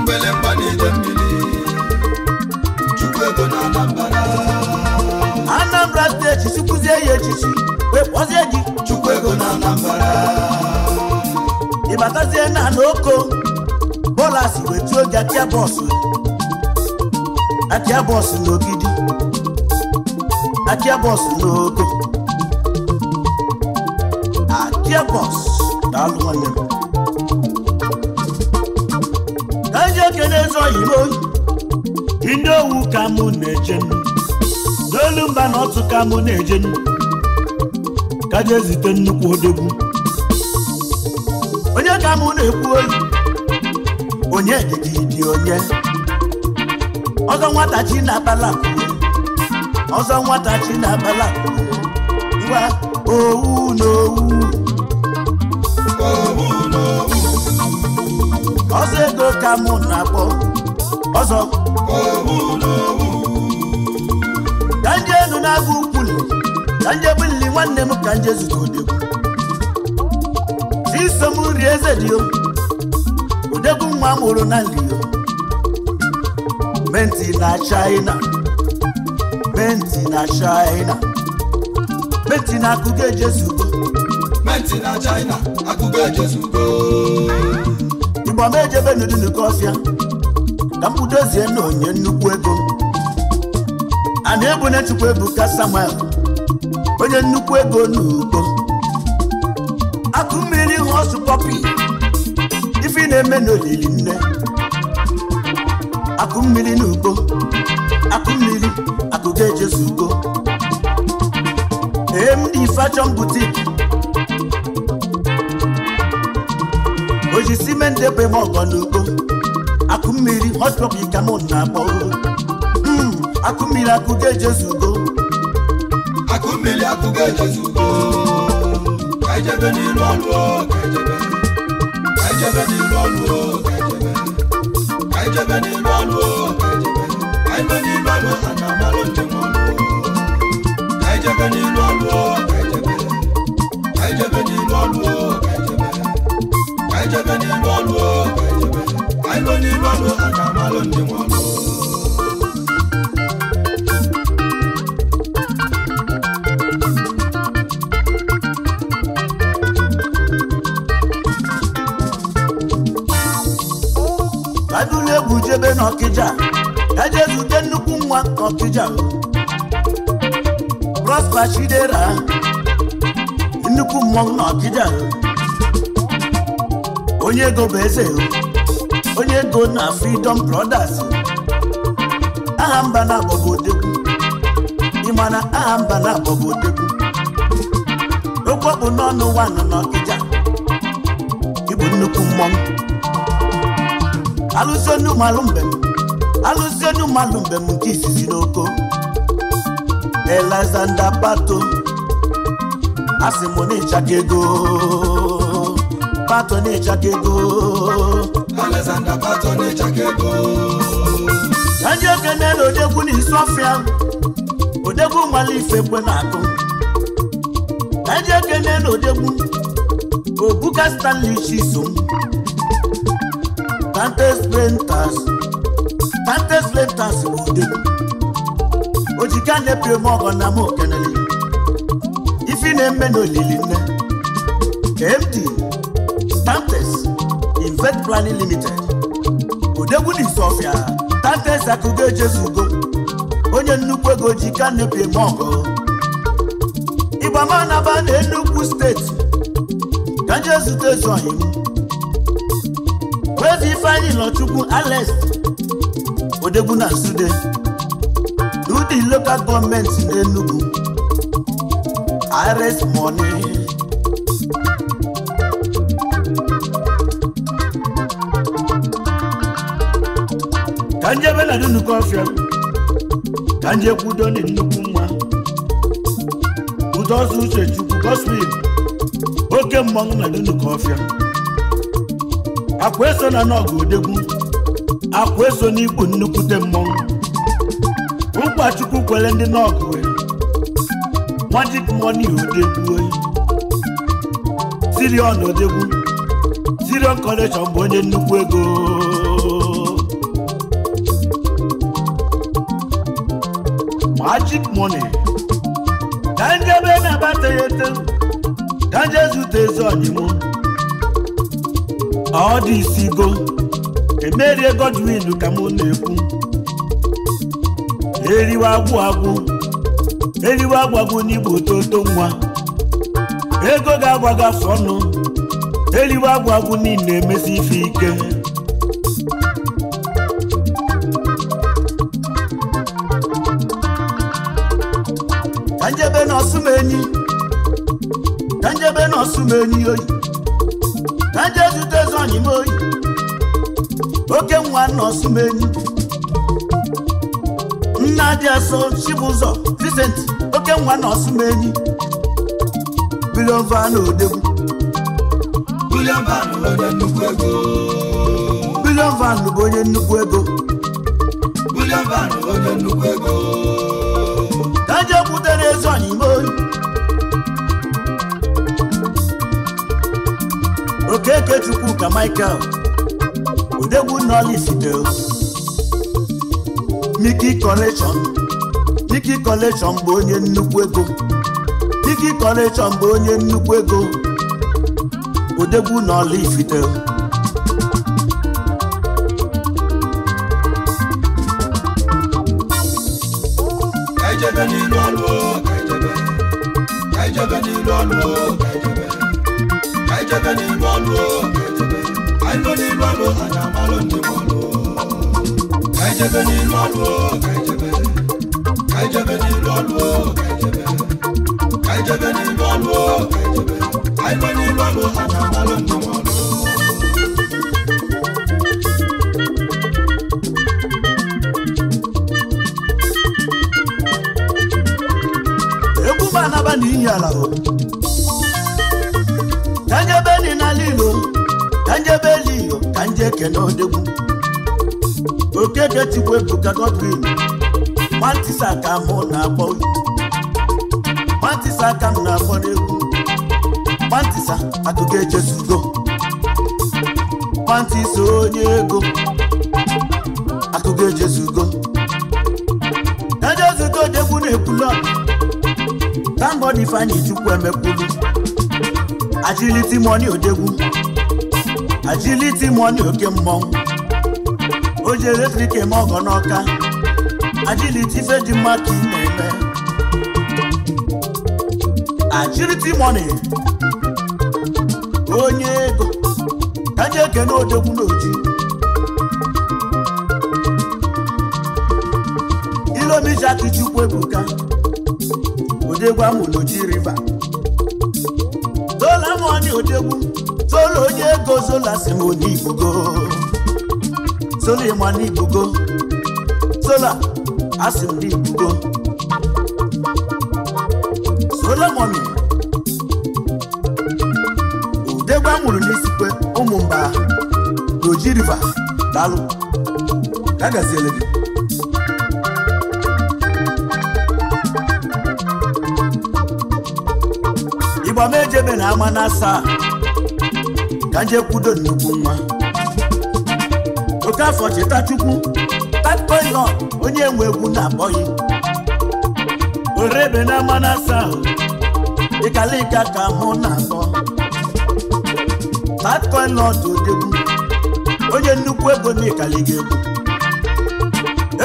mgbelemgba na-ede mmiri chukwu ego na Anambra Anambra steeti chukwuzie ya echichi wekpọzie gị chukwu ego na Anambra ịbatazie na n'oko bọla si wetuo gị atịa bọsụ atịa bọsụ n'ogidi atịa bọsụ n'oko Danger Boss daalụ nwanne m danger ekene ndị owu ka m na-eje n'olu mba na ọtụ ka m na-eje kaja ezite nnukwu odogwu onye ka m na-ekwu oyi onye dịdị dị onye ọzọ nwata chi na-abala ọzọ nwata chi na-abala ngwa owu na owu ọzọ ego ka mụ na-akpọ ọzọ ka nje enu na-agụ ukwuli ka nje bulili nwanne m ka nje zụta odegwu iso m rie eze dị o odegwu nwa mụrụ na nlio menti na china menti na china menti na akụkọ ejezugo menti na china E igbo m ejebe n'udunke ọfịa ka m budozie na onye nnukwu ego a na-ebu na-echukwu ebu ka Samuel onye nnukwu ego n'ugbo akụ mmiri ọsụ pọpi ife na-eme n'olili nne akụ mmiri n'ugbo akụ mmiri akụ ga-ejezu ugbo ee m dị ife n'ime ndị bụ eme ọgọ Akụ mmiri hospọpụ ka m na-akpọ hmm, akụmmiri akụga ejezu ugo akụmmiri akụga ejezu ugo e n'ilu ọlụ ejebe ka e e n'ilu ọlụ ọ ejebe ọlụ ọlụ ejebe ọkija prosper chidera nnukwu mmọnwụ na onye ego bụ eze onye go na freedom brothers aha mba na agbọgo odegwu ịmana aha mba na agbọgo odegwu okpọkpụ n'ọnụ wanụ na ịbụ nnukwu mmọnwụ alụso nnumalụ mbem alụzienu mmadụ mgbe m nke izizi n'oko Alexander Pato asị m na ego Pato na-echaka ego Alexander Pato na-echaka ego ndị okene na odegwu na isi ọfịa odegwu nwale ife kwe na-akụ ndị okene na odegwu obuka Stanley Chisom Dantes Brentas vantage lentas n'ude ojiga na-ebiri m ọgọ na m okenele ifi na-eme n'olili nne KMD Tantes Invest Planning Limited odegwu n'Isofia Tantes akụgo ejezugo onye nnukwu ego ji ka na-ebiri m ọgọ naba na Enugu steeti ka nje zute ezu ọhịa ife anyị Ifeanyi chukwu Alex odegwu na nsude udi local gọọmenti n'Enugu IRS money ka nje ebe nnukwu ọfịa ka nje kwudo na nnukwu nwa udozụ uche chukwu gospel oke mmọnwụ na dị nnukwu ọfịa akwa eso na n'ọgụ odegwu akwa eso n'ikpu nnukwute mmọnwụ ụkọchukwu kwere ndị n'ọgụ magic money odegwu sirion odegwu sirion collection bụ onye nnukwu ego magic money ka njebe na ya ete ka nje zute ezi ọdịmụ ọ dị isi go. emerie Godwin ka mụ na-ekwu eriwe agwụ agwụ eriwe agwụ agwụ n'igbo toto nwa ego ga-agwa gị afọ ọnụ eriwe agwụ agwụ niile emezi ife ike ka njebe na ọsụmenyi ka njebe oyi ka zute zọnyi oyi oke nwa enyi. nna dị asọ chibụzọ Vincent oke nwa van biliova na Bilion van bụ onye nnukwu ego kaje butere ezi ọnyịma oyi okeke chukwu ka Michael odegwu nọlisdeo Miki Collection Miki Collection bụ onye nnukwu ego Miki Collection bụ onye nnukwu ego odegwu nọlisdeo ọrụ anyị amalụ ndị ọrụ ka anyị jebe n'iru ọrụ ka anyị jebe ka jebe olu ọrụ ka jebe ọrụ ekene odegwu okedetigwe bụka godwin matisa ka mụ na-akpọ matisa ka m na-akpọ n'egwu matisa akụkọ echezugo matisa onye ego akụkọ echezugo ejezugo odegwu na-ekwulu tangod ifeanyị chukwu emekwulu agility money odegwu ajiliti money oke mmọnwụ o ji eletrik eme ọgọ n'ọka ajiliti ife dị mma ka ị na-eme eh. ajiliti money onye ego ka nye ekene odogwu n'oji ilomeji akụchukwu ebuka odegwu amụ n'oji riva dola money odegwu olu onye ego zola si m onye igbugo zola ịma na igbugo zola asị m na igbugo zola mọmi udegba nwụrụ n'isikwe ụmụ mba n'oji riva dalụ ka gaziele gị ịgba m ejebe na ama na asaa ka jekwudo nnukwu nwa Okafọ Chitachukwu tapoilon onye nwe egwu na abọghị orebe na mmanụ asaa ịkalịka ka ahụ na-atọ tatkoilon odegwu onye nnukwu ego na ịkaliga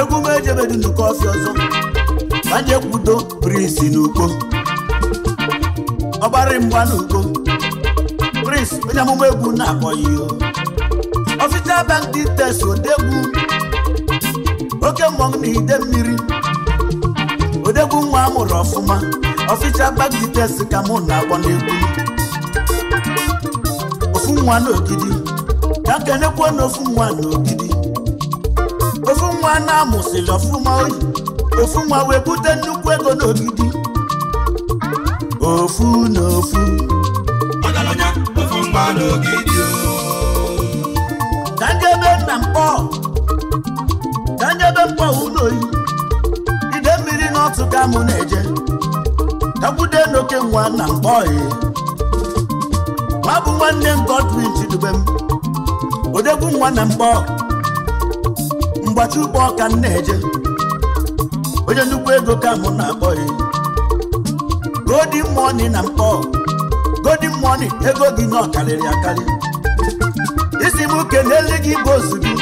egwu egwu m ejebedu nnukwu ọfịa ọzọ ka kwudo brisi n'ugbo ọgbara mgba n'ugbo onye amụma egwu na-akọghị ọfịsa bank details odegwu oke mmọnwụ na ide mmiri odegwu nwa amụrụ ọfụma ọfịsa bank details ka mụ na-akpọ n'egwu ofu nwa n'ogidi ka nkenekwuo na ofu nwa n'ogidi ofu nwa na-amụsịrị ọfụma oyi ofu nwa wee bute nnukwu ego n'ogidi ofu na ofu mba n'ogidi ka njebe nna mkpọ ka mkpọ ụlọ oyi ide mmiri n'ọtụ ka mụ na-eje takwude n'oke nwa na mkpọ nwa bụ nwanne m Godwin m. odegwu nwa na mkpọ mgbachi ụkpọ ka m na-eje onye nnukwu ego ka mụ na-akpọ ya godi mọni na mkpọ golden money ego gị nọ karịrị akarị isi m kelele gị bụ ozugbo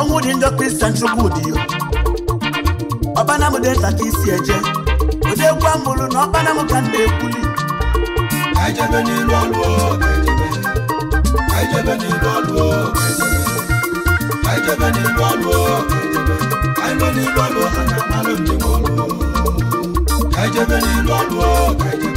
ọnwụ dị njọ kristian chukwu dị ya ọkpana m dị nta isi eje ụdị egwu amụrụ na ọkpana ka na-ekwuli ejebe n'ilu ọlụ alụọ, n'ilu ọlụ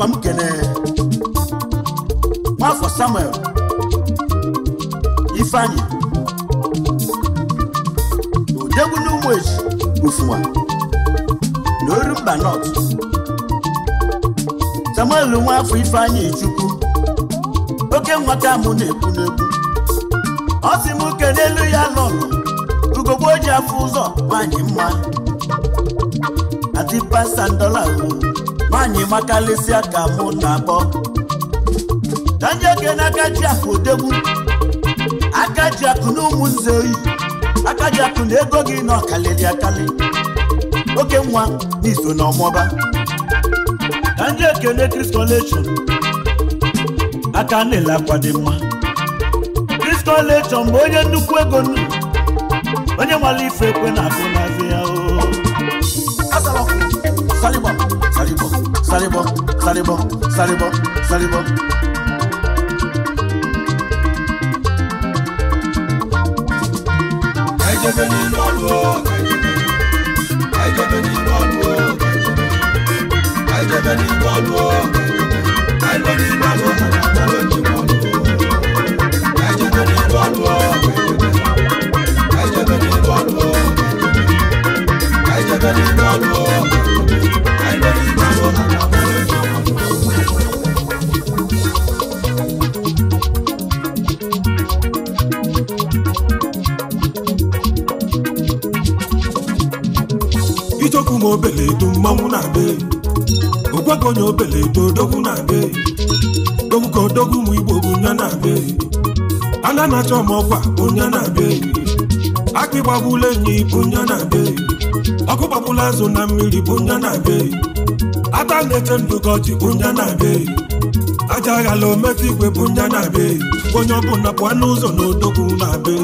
akwa m kene nwafọ samuel ifeanyi na odegwu n'ụmụ eji ofuwa na oru mba nọt samuel nwafọ ifeanyi chukwu oke nwata mụ na-ekwu n'ekwu ọ sị m uke n'elu ya lọnụ ugogbo ji afọ ụzọ nwanyị mma adipasandọla anyị makalịsịa aka mụ na abọ danjeke na aka akụ odegbu aka akụ na ụmụnze oyi aka akụ na ego gị na ọkalịrị akalị oke nwa n'iso na ọmọba danjeke na Christ College aka na-ele akwa dị mma Christ College mgbe onye nnukwu ego onye nwale ife ekwe na agụ na ya o sáré bọ̀ sáré bọ̀ sáré bọ̀ sáré bọ̀. ẹjẹ bẹ ní lọ́lù o ẹjẹ bẹ ní lọ́lù o ẹjẹ bẹ ní lọ́lù o ẹjẹ bẹ ní lọ́lù o àdàbọ̀ ló ti wọ́n lò ẹjẹ ichokwu ma mmanwụ na-abịa ogwago onye obele edo odogwu na-abịa dogwu ka odogwu ụmụ igbo bụ nya na ọbụla azụ na mmiri bụ nja na be ata na-eche ndụ ka ọchị bụ nja na be aja aghala ometa igwe bụ nja na be onye ọbụla pụọ n'ụzọ na odogwu na be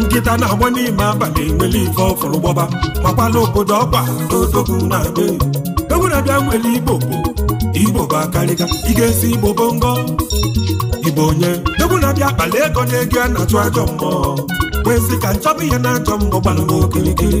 nkịta na-agba n'ime abalị nwere ife ọfụrụ gbọba makwala obodo ọkwa na na be egwu na nwere igbo igbo bụ akarịga ị ga-esi igbo bụ ngọ igbo onye egwu na ego na ego a na-achụ ajọ mmụọ wee sị ka nchọba ihe na ajọ mmụọ gbalụ n'okirikiri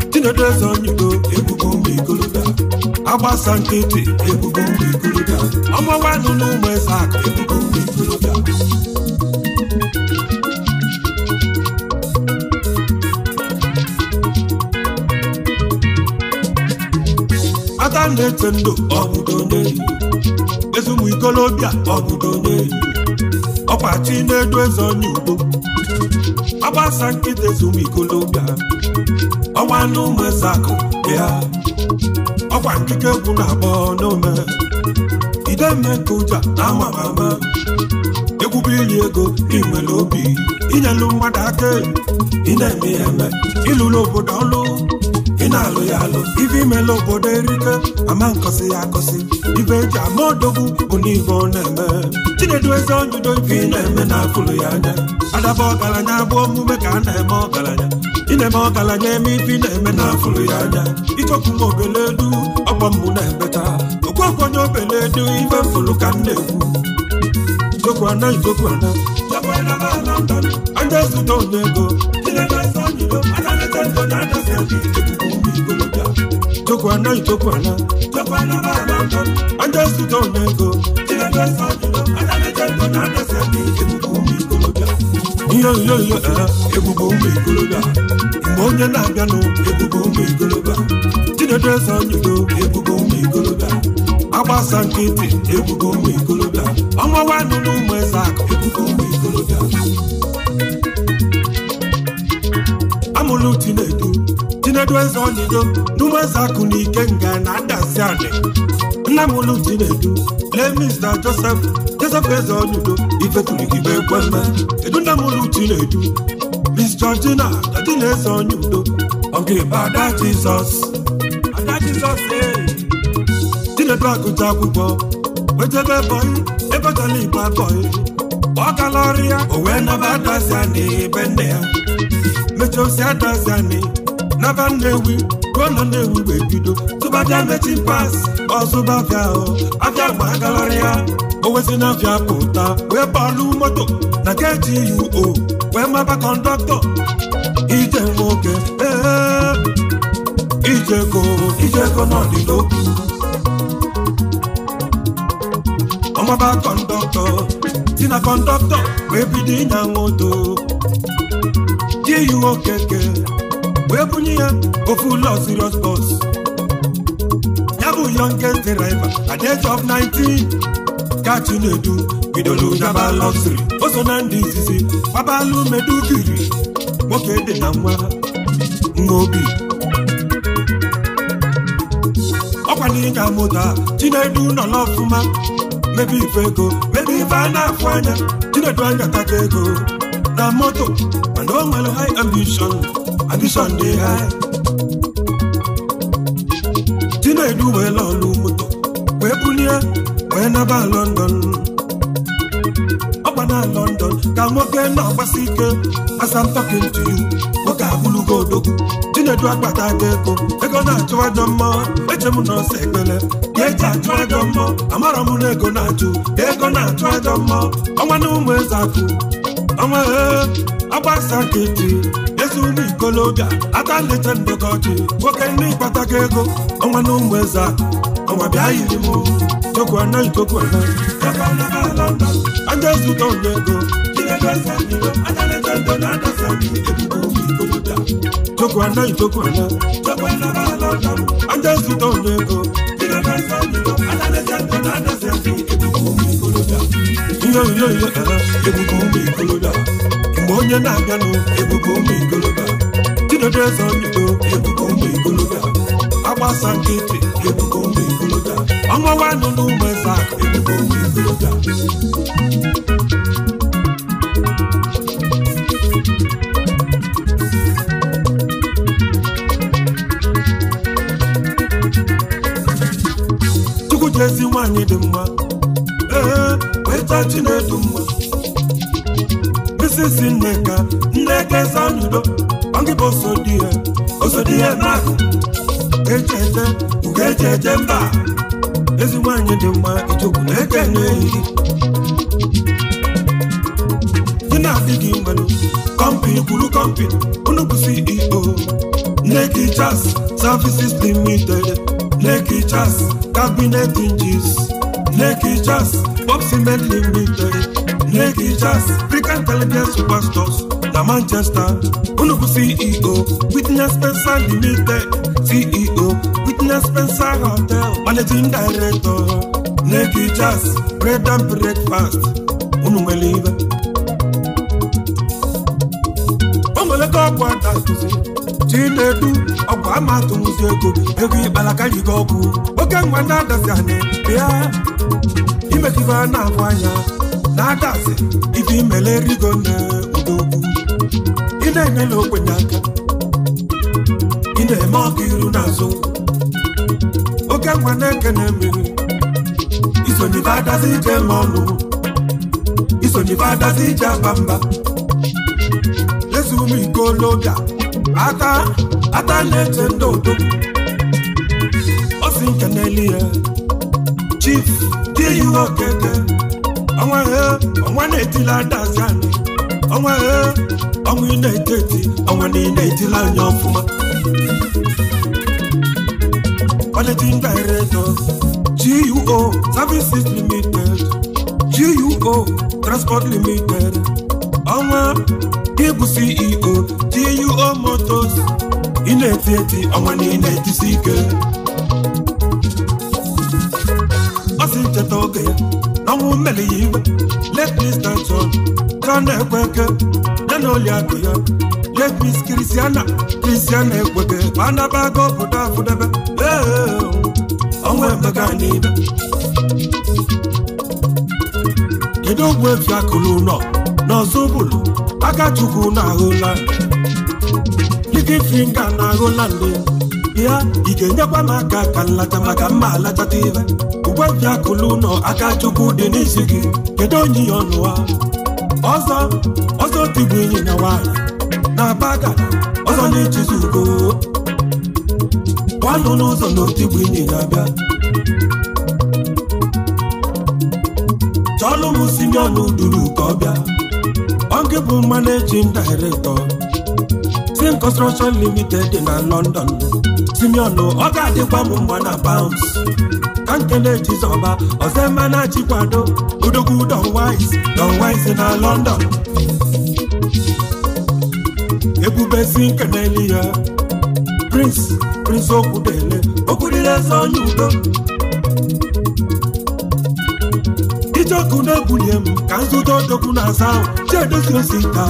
tinedeze onyedo ebubo mgbe igoloda agbasa nkịtị ebubo mgbe igoloda ọmọwanụ n'ụmụ eze akụ ebubo mgbe igoloda ata na-ete ndụ ọbụdo n'elu ezumụ ikolobịa ọbụdo n'elu ọkwa chi na-edu eze onye ọgbasa nkịta ezumikologa ọnwa gị ya ọkwa nkike egwu na agba n'ome ideme ka ụja na amamama egwube iri ego n'inwere obi inyelu mmadụ aka ịna-eme ya eme ịlụrụ obodo ọlụ na-alụ ya alụ ife imela obodo erike ama nkosi ya akosi ibe eji ama odogwu bụ ọ na-eme chinedu eze onjudo ife ị na-eme na-akụlụ ya anya adaba ọgaranya abụ omume ka a na-eme ọgaranya ịna eme ọgaranya eme ife ị na-eme na-afụlụ ya anya ichọkwu m obele du ọkpọ mbụ na-emeta okwe okwenye obele du ife mfụlụ ka m na-ekwu igokwana igokwana ajazụta onye ego igokwana igokwana ajazụta onye ego ihe ihe ihe ebubo ụmụ igoloba mgbe onye na abịanụ ebubo ụmụ igoloba chinedu eze anyị do ebubo ụmụ ọgbasa nkịtị egwugo ụmụ ikolobịa ọnwa nwanne ụmụ eze akụ egwugo ụmụ ikolobịa amụlụ tinedu tinedu eze onido n'ụmụ eze akụ na ike nga na ndasị anị nna mụlụ tinedu lee mista Josef joseph eze onido ifetụligibe ekweme edu nna mụlụ tinedu Miss Georgina, that is on you. Okay, but that Jesus. And that Jesus, eh? tinebe agụta akwụkwọ ojebe bọyị ebetala igbo ọ gala ọrụ ya o wee naba adazi ya ebe nne ya mechosi adazi anị naba nnewi na nnewi wee bido tụbabịa mechi pas ya na abịa pụta wee bọọlụ moto na KGUO wee maba kọndọktọ ije nwoke ee ijeko ijeko agbaba kọndọktọ si na kọndọktọ wee bido ịnya moto ji yiwe nke wee bunye ya ofu ụlọ serious bọs. ya bụ youngest driver at age of 19 ka Chinedu bidoro nyaba luxury o so na ndị izizi gbabalụ medugiri nwoke dị na nwa nwa obi ọkwa na ịnya moto a Chinedu nọ n'ọfụma mebe ife ego mebe ife a na-afụ anya chinedu anya taka ego na moto mana o nwere high ambition ambition dị high chinedu wee lọlụ moto wee bulie wee naba London ọgba na London ka nwoke na-agbasi ike asa I'm nwoke abụrụgo odogwu ejedu akpata m ego ego na-achụ ajọ mma eche m na ọsọ ekpele ka eji achụ mma amara m na ego na-achụ ego na-achụ ajọ mma ọnwa na ụmụ eze akụ ọnwa e, agbasa nkịtị ezu n'ikolobịa atalecha ndọka ọchị nwoke nne ịkpatago ego ọnwa na ụmụ eze akụ ọnwa bịa yiri m ikoku anaghị ikoku anaghị aka ọ na-ala nda aja ego Tokwanda yi tokwanda Tokwanda ba ala Aja ego Ebubo ụmụ ala ụmụ Mgbe onye na-abịa Ebubo ụmụ ikoloda Chidodo eze onyigo Ebubo ụmụ ikoloda Agbasa nkịtị Ebubo ụmụ Ọnwa nwanụ n'ụmụ eze akụ Ebubo ụmụ chukwu jezi nwanyị dị mma ee weta chinedu mma misisi nneka nneka ezanudo ọgịbụ osodi ya osodi ya n'akụ echete ugo echeche mba ezi nwanyị dị mma ichekwu na-eke na na-adịghị mmanụ kọmpini kwuru kọmpini unu bụ CEO Neki Chas Services Limited Neki kabinet Cabinet Hinges Neki Limited Neki Chas African Intelligence na Manchester unu CEO Witness Limited CEO Witness Spencer Hotel Managing Director Neki Chas Bread and Breakfast ọgwụdatụzi chinedu ọgwụ amatụzi ego ego ịkpalaka jigo ọgwụ oke nwa na-adazi anyị bịa imekibe a na-ahụ anya na-adazi ife imele rigo na odogwu ị na-enyela okwenye aka ị na-eme ọka iru n'azụ oke nwa na-ekene mmiri isonye ife adazi ije ma ọnụ isonye ife adazi ije agba mba ụmụ ikologa ata ata na-eche ndị odo osi nke n'elu ya chief diyihe okete? ọnwa he ọnwa na-etila adazi anyị ọnwa he ọnwa ị na-eti eti ọnwa na ị na-etila anya ọfụma managing director GUO Services Limited GUO Transport Limited ọnwa gị e bụ CEO TUO Motors ị na-eti eti ọnwa niile ejisi ike ọ sị ncheta oge ya na mmeli ya iwe let me start on ka na-ekwe eke ya na oli akụ ya let me kristiana kristiana ekweke ma anabago obodo afụdebe ọnwa emega n'ibe kedu ogwu efi akụlụ ụlọ na ọzọ bụlụ Akachukwu na-ahụla Living Finger na-ahụla nne ya ị ga-enyekwa n'aka ka nlacha maka mma alachata alatata ibe uwe bịakụlụ ụlọ Akachukwu dị n'isi gị kedu onye ya ọnụ ha ọzọ ọzọ tigbu enyi na nwaanyị na-aba aka ọzọ na-echizi ugo gwanụ n'ụzọ na otigbu inyi na-abịa chọlụ m si ọnụ duru ka ọ bịa oge bụ managing director si Construction Limited dị na London tinyonu ọ ga-adịkwa m mgba na bounce ka nkele jizọba mma na-achịkwado odogwu Don Wise Don Wise na London na-eli ya Prince Prince okwudele okwudile eze onye udo ọkụ na-ebunye m ka nzụta odogwu na asa Chiedozie Osita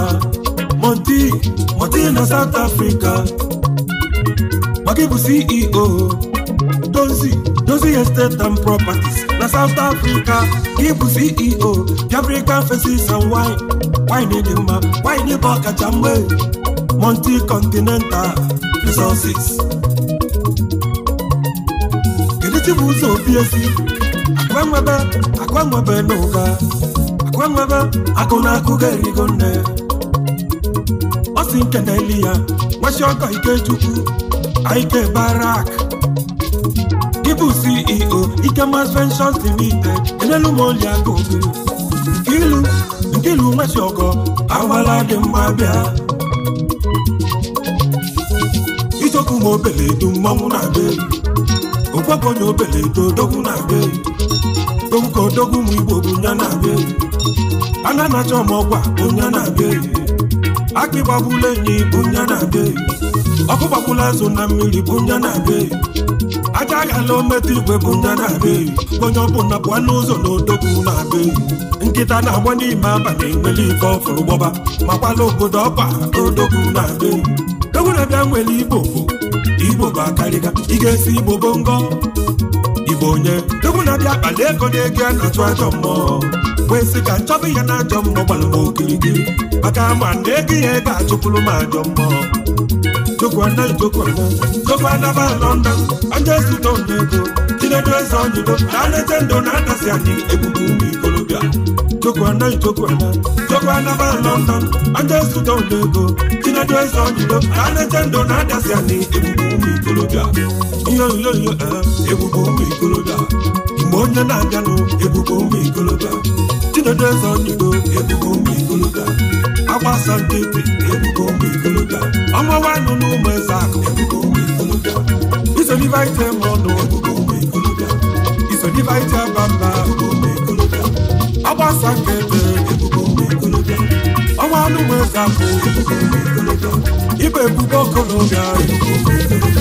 Monty Monty na South Africa maka ịbụ CEO dozi dozi estate and properties na South Africa ịbụ CEO African faces and wine wine dị mma wine bụ ọkacha mgbe Monty Continental Resources kedu chi bụ ụzọ obiesi akwanwebe akwanwebe n'ụba akwanwebe akụ na akụ ga-erigo nne ọ si nke na-eli ya nwesi ọkọ ikechukwu ike barak ịbụ ceo ikemas ventures limited enelu m oli aka obi ilu nke ilu nwesi ọgọ awala dị mma bịa ichọkwu m obele mmanwụ na-abịa okwebụ onye obele edo odogwu na-abịa odogwu ka odogwu ụmụ igbo bụ nya na-abịa eyi ana anacha ọmọgwa bụ nya na-abịa eyi akị gbagbula enyi bụ nya na-abịa eyi ọkụ gbagbula azụ na mmiri bụ nya na-abịa eyi aja aghala ometụ igwe bụ nya na-abịa eyi onye ọbụla pụọ n'ụzọ na odogwu na-abịa eyi nkịta na-agba n'ime abalị nwere ike ọfụrụ gbọba makwala obodo ọkpa odogwu na-abịa eyi dogwu na-abịa nwere igbo igbo bụ akarịga ị ga-esi igbo bongo bụ onye egwu na-abịa akpali ego na-ege n'atụ ajọ mmụọ kwesị ka nchọba ihe na ajọ mmụọ gbara m okirikiri maka ma na ego ihe ga-achụpụrụ m ajọ mmụọ jokwana jokwana jokwana ba london onye zụta onye ego chinedu eze onyibo na anete ndụ na-adasi anyị egbugu ụmụ ikolobịa jokwana jokwana jokwana ba london onye zụta onye ego chinedu eze onyibo na anete ndụ na-adasi anyị egbugu ikolobịa ihe onyonyo ebube ụmụ ikolobịa mgbe onye na-abịanụ ebube ụmụ ikolobịa Chidodo eze onyigbo ebube ụmụ ikolobịa agbasa ndị ebube ụmụ ikolobịa ọmawa nụ na ụmụ eze akụ ebube ụmụ ikolobịa isonibite m ọnụ ebube ụmụ ikolobịa isonibite bamba ebube ụmụ ikolobịa agbasa nke ebe ebube ụmụ ikolobịa ọnwa anụ ụmụ eze akụ ebube ụmụ ikolobịa ịbụ ebube ọkụ n'oge ahụ ebube ụmụ ikolobịa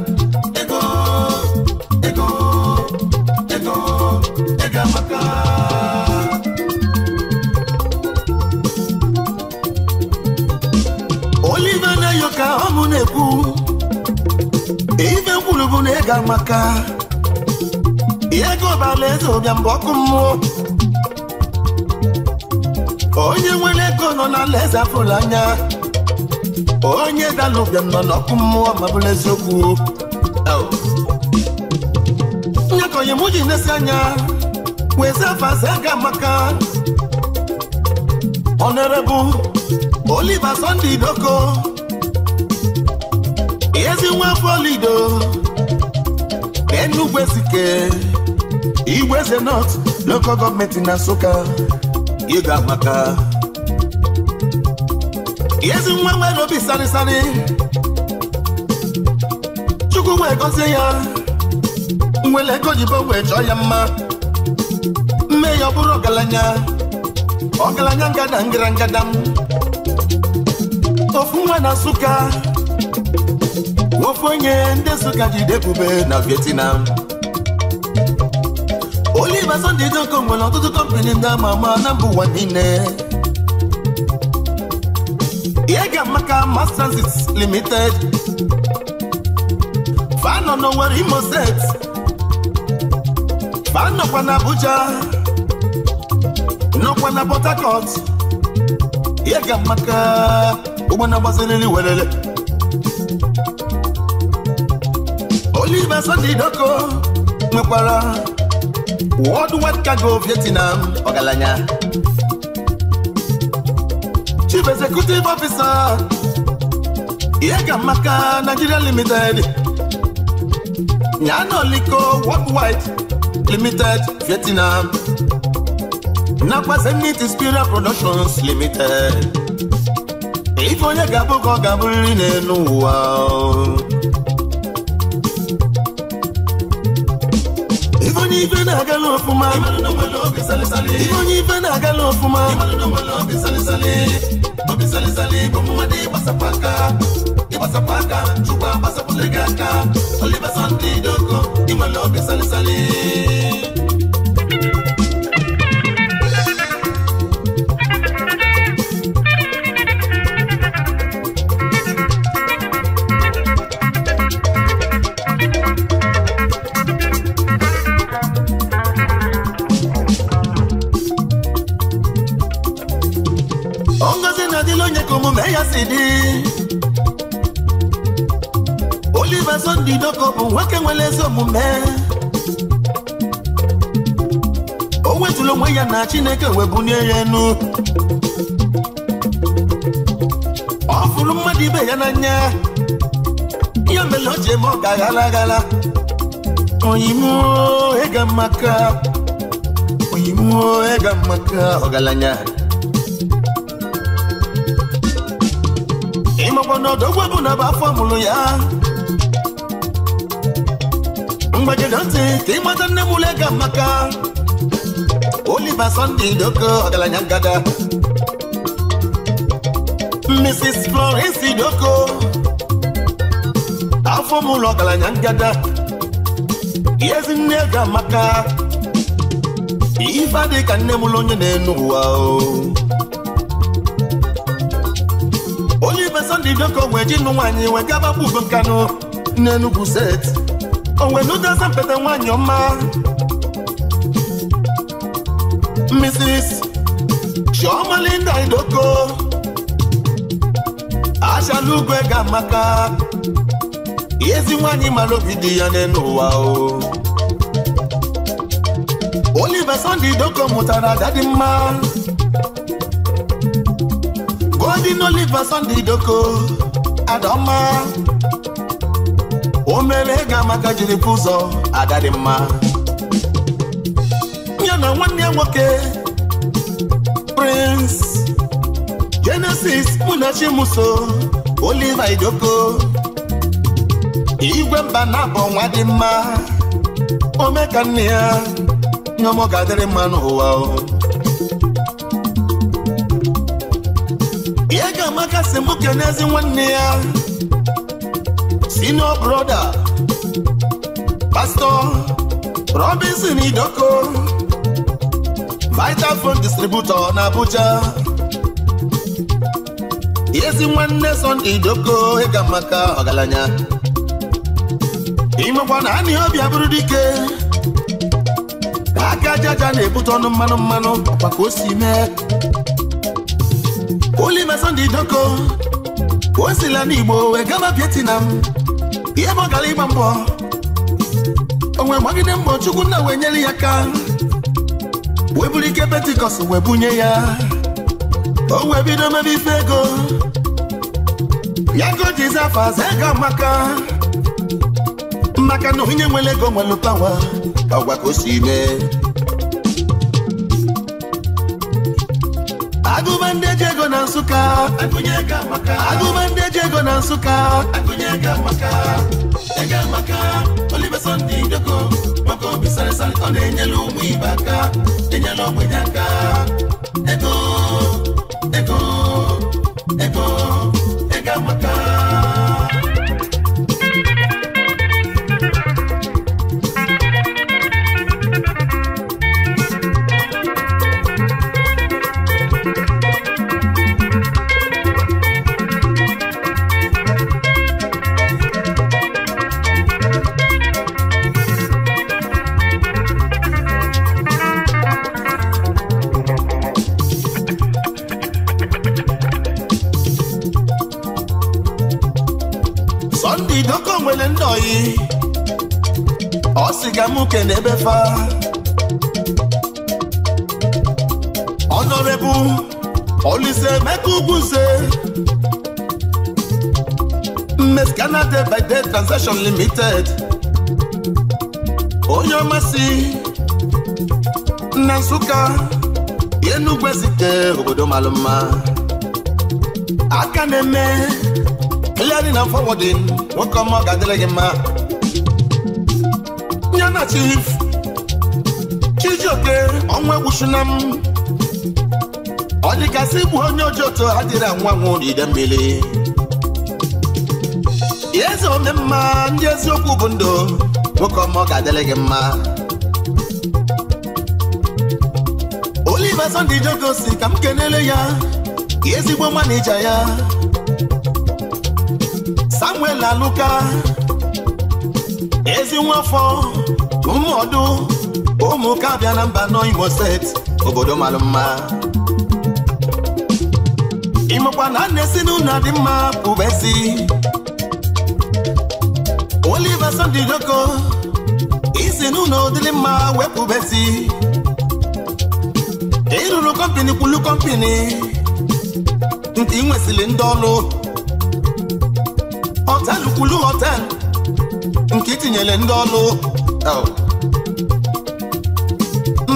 olive na-eyo ka ọmụ na-ekwu ife mkwuru bụ na ịga maka ego ọbala eze ụbịa mgbe ọkụ mmụọ onye nwere ego nọ na alaeze afụrụ anya onye dala ụbịam nọ n'ọkụ mmụọ ma bụrụ eziokwu m ji na anya wezefazaga maka honorable Oliver Sunday Doko ezi nwafọlido Enugwu Ezike Igweze North local gọọmenti na Nsụka ịga maka ezi nwa nwere obi sarịsarị Chukwu gọzie ya Nwele ego jibo wee chọọ ya mma ya buru galanya, o oh, galanya gadang gerang gadam. o oh, fuma na suka o oh, fonye nde suka di jide ebube na Vietnam oli Sunday Ijoko nwere ọtụtụ kọmpani ndị ama ama na mba ụwa niile ihe ga-amaka Limited fa no worry, Imo State fa nọkwa n'Abuja ụgwọ na Port Harcourt ihe ga amaka ụgbọ na gbaziriri welele Oliver Sunday Doko nwekwara Worldwide Cargo Vietnam ọgaranya Chief Executive Officer ihe ga maka Nigeria Limited Nyanoliko white Limited Vietnam nakwa Zenith Spirit Productions Limited ife onye ga-abụ ka ọ ga-abụrịrị n'elu ụwa ife onye ife na-agala ọfụma ife onye ife na-agala ọfụma Ọ aka gị aka olive sandi dogo inwere obi salisali chineke wee bunye ya enu ọ fụrụ mmadụ ibe ya n'anya ya mere o ji eme ọ ga-aghala aghala oyimuo ịga maka oyimuo maka ọgaranya ịmakwa na ọdọgwa bụ na bụ afọ mụrụ ya mgbajide ntị ka ịmata nne m ịga Oliver Sunday Doko ọgalanya ngada Mrs. Florence Doko afọ m ụlọ ọgaranya ga maka ihe ife adịghị ka nne m onye na-enu ụwa o Oliver Sunday Doko wee ji nụ nwaanyị wee gaba bụ Ugo Nkanu n'Enugwu set onwe n'ụdị asa mpete nwaanyị ọma Mrs. Chiomalinda Idoko Ashalugwe Gamaka ezi nwanyị mara obi dị ya n'ụwa o Oliver Sunday Idoko mụtara dadi mma Golden Oliver Sunday Idoko Adọma o mere Gamaka jiri pụzọ adadị mma nwanne nwoke Prince Genesis Munachi Muso Oliver Idoko igwe mba na-abụ nwa dị mma ome ka nne ya nyọmọ ga-adịrị mma n'ụwa ihe ga-amaka si mụ n'ezi nwanne ya senior brother Pastor Robinson Idoko vital phone distributor na Abuja ezi nwanne Sọnde Doko ịga maka ọgaranya imekwa na anị obi abụrụ dike aka ajaaja na-ebute ọnụ mmanụ mmanụ ọkwa oh, ka o si mee Ulime Sọnde Doko o sila n'Igbo wee gaba oh, m" ihe bụ gara ịgba mbọ o gbagide mbọ Chukwu nna wee nyere ya aka wee ike pentikọst wee bunye ya o wee bido mebe ife ego ya go jizi afọ aza ego maka maka na onye nwere ego nwere pawa ọgwa ka o si mee agụba ndị eji ego na nsụka agụba ndị eji ego na nsụka agụnye ego amaka ego amaka olive sọnde idoko aka obi sarịsarị ọ na-enyela ụmụ ibe aka enyela ogbenye aka ego uche na ebe fa Honorable Olise Emeka Ugwuze Mmes Canada by Day Transaction Limited onye ọmasị na Nsụka Enugwu site obodo mara aka na-eme clearing and forwarding nwoke ọma ga-adịrị gị mma na chief chijioke ọnwa egwuchina m ọ dịgasị bụ onye ojioto adịrị anwa nwụ n'ide mmiri eze ome mma ndị eziokwu bụ ndụ nwoke ọma ọ ga-adịrị gị mma Oliver Sunday Ijoko ka m kenele ya ezigbo manija ya Samuel Aluka ezi nwafọ ụmụọdụ ụmụka abịa na mba nọ Imo steeti obodo mara mma imekwa na nne si na ụlọ dị mma pụbesi Oliver Sunday Doko isi n'ụlọ dịrị mma wepụbesi ịrụrụ kọmpini kwulu kọmpini nke ị nwesịrị ndị ọrụ họtelụ kwulu nke itinyere ndị ọrụ oh.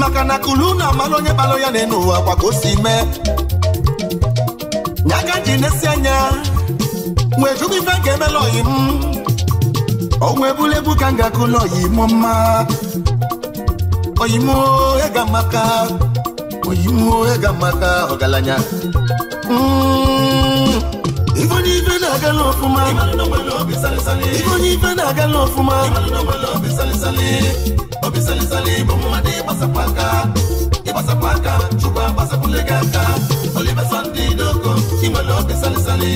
maka na kulu na amala onye kpalụ ya n'enu enu kwa ka o si mee nya ka ji na-esi anya wee jụrụ ife ga emela oyi m ọgwụ ebulebu ka m ga-akụla oyi m mma oyi m ega maka oyi m ega maka ọgaranya mm. ife onye ife na-agala ọfụma ife onye ife na-agala ọfụma bisalisali bomumadi basapaka ibasapaka cuba basakulegaka olibesandi doko imalo bisalisali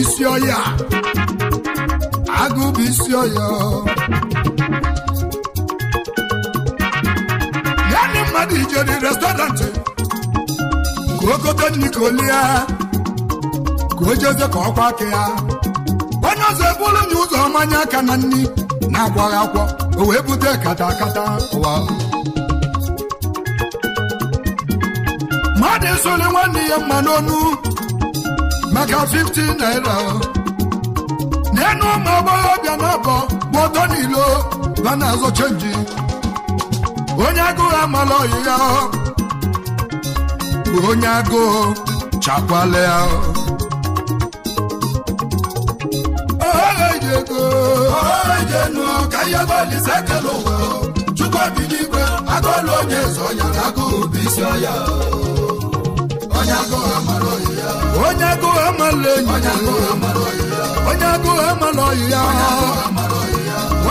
isi ọya agụ bụ isi ọya ya na mmadụ ijeri restọrantị ka ogote nri ka ka ọ jeze ka ọkwa aka ya onye ọzọ ebulu nye ụzọ mmanya aka na nri na-agwaghị akwọ o wee bute kata akata ụwa mmadụ esole nwanne ya mma n'onu maka 15 naira n'enu ụmụ agbọghọbịa na-abọ gbọdọ n'ilo ba na-azọ chenji onye agụụ amala ọyịya onye agụụ chakwala ya chukwubiligwe agụọla onye zọ ya na agụụ bụ isi ọya onye agụụ amala ọyịya onye agụụ amala ọyị ya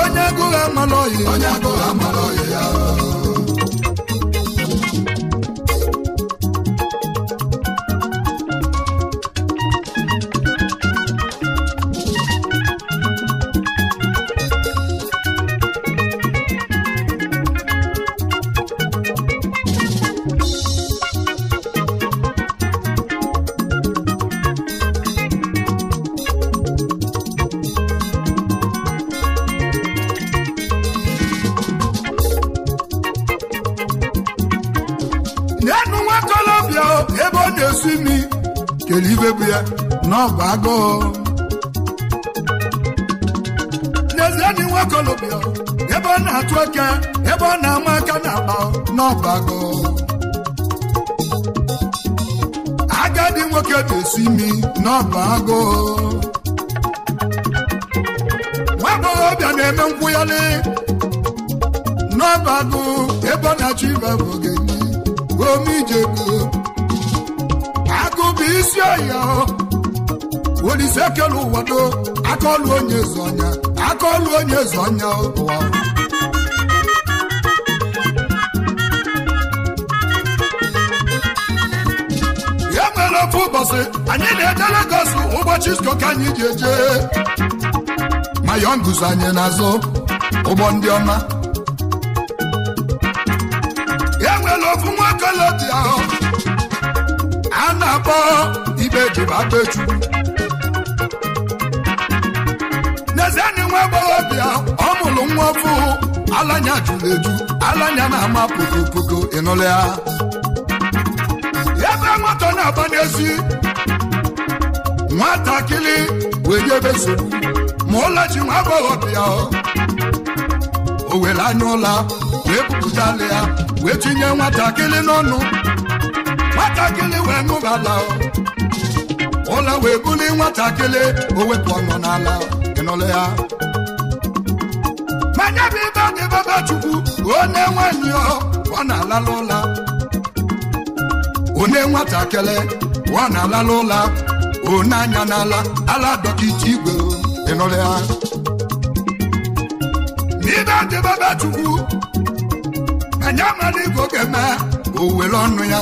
onye agụụ amala ọyị ya n'ọbago agadi nwoke na-esi imi n'ọbago nwagbọghọbịa na-eme nkwụyali n'ọbago ebe ọ na-achọ ibe bụ ome omijego agụ bụ isi ọya olise kelu ụwado akaọlụ onye eze ọnya onye eze ọnya ụwa ofu ụbọchị anyị na-eje legos ụbọchị isko anyị ji eje mayon guzo anyị n'azụ ụgbọ ndị ọma e ofu nwoke ahụ a na-akpọ Ibe beju n'ezie na nwa agbọghọbịa ọ mụrụ nwa ofu alanya juru eju alanya na-ama pogopogo ịnụlụ ya na-aba n'ezi nwatakịrị wee nye ebe nsogbu ma ji nwa agbọghọ bịa o were anya ụla wee wee tinye nwatakịrị n'ọnụ nwatakịrị wee ṅụbala ụla wee buli nwatakịrị o wepụ ọnụ n'ala ya manya na onye nwatakịrị ọ na-alala ụlọ one anya n'ala ala dọkịta igwe ịnụrụ ya n'ibe adịbaba chukwu anya mara igo ga-eme o were ọnụ ya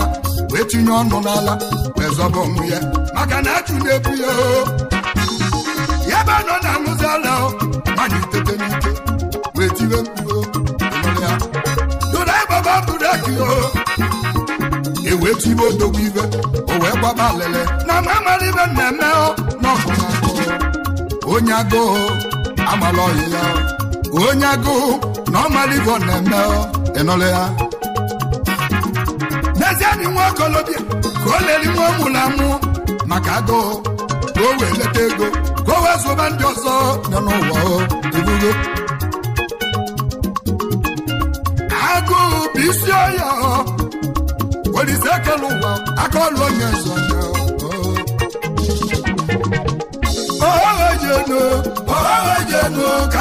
wee tinye ọnụ n'ala wee zọba ya maka na achụ na-ebu ya ya ebe nọ na-aṅụzi ala manya itete n'ike mechiri odogwu ibe o wee gbaba alele na ma amara ibe mmemme n'ọkụ onye agụụ amala ọyị ya onye agụụ na ọ ọmara ibe ọ na-eme ịnụlụ ya n'ezie dị nwa okolobịa ka o leli nwa ọmụla mụ maka agụụ ka o wee leta ego ka o wee zụba ndị ọzọ nọ n'ụwa ibugo agụụ bụ isi ọya jekele ụwa aka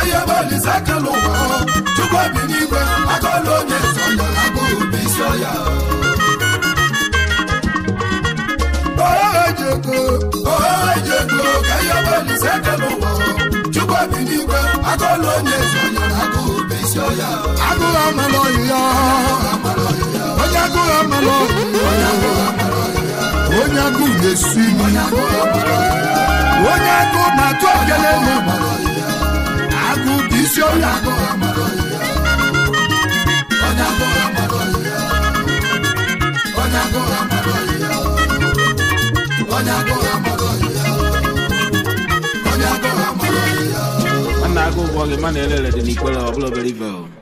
ihe belise kele ụwa chukwu bi n'igwe aka ọlụ onye zọ ya ihe onye agụghị amala onye agụ na-esi onye agụ na-atụ ogele agụ dị isi ọrịa onye agụ ụgwọ gị mana elele dị n'ikpere ọbụla obere ibe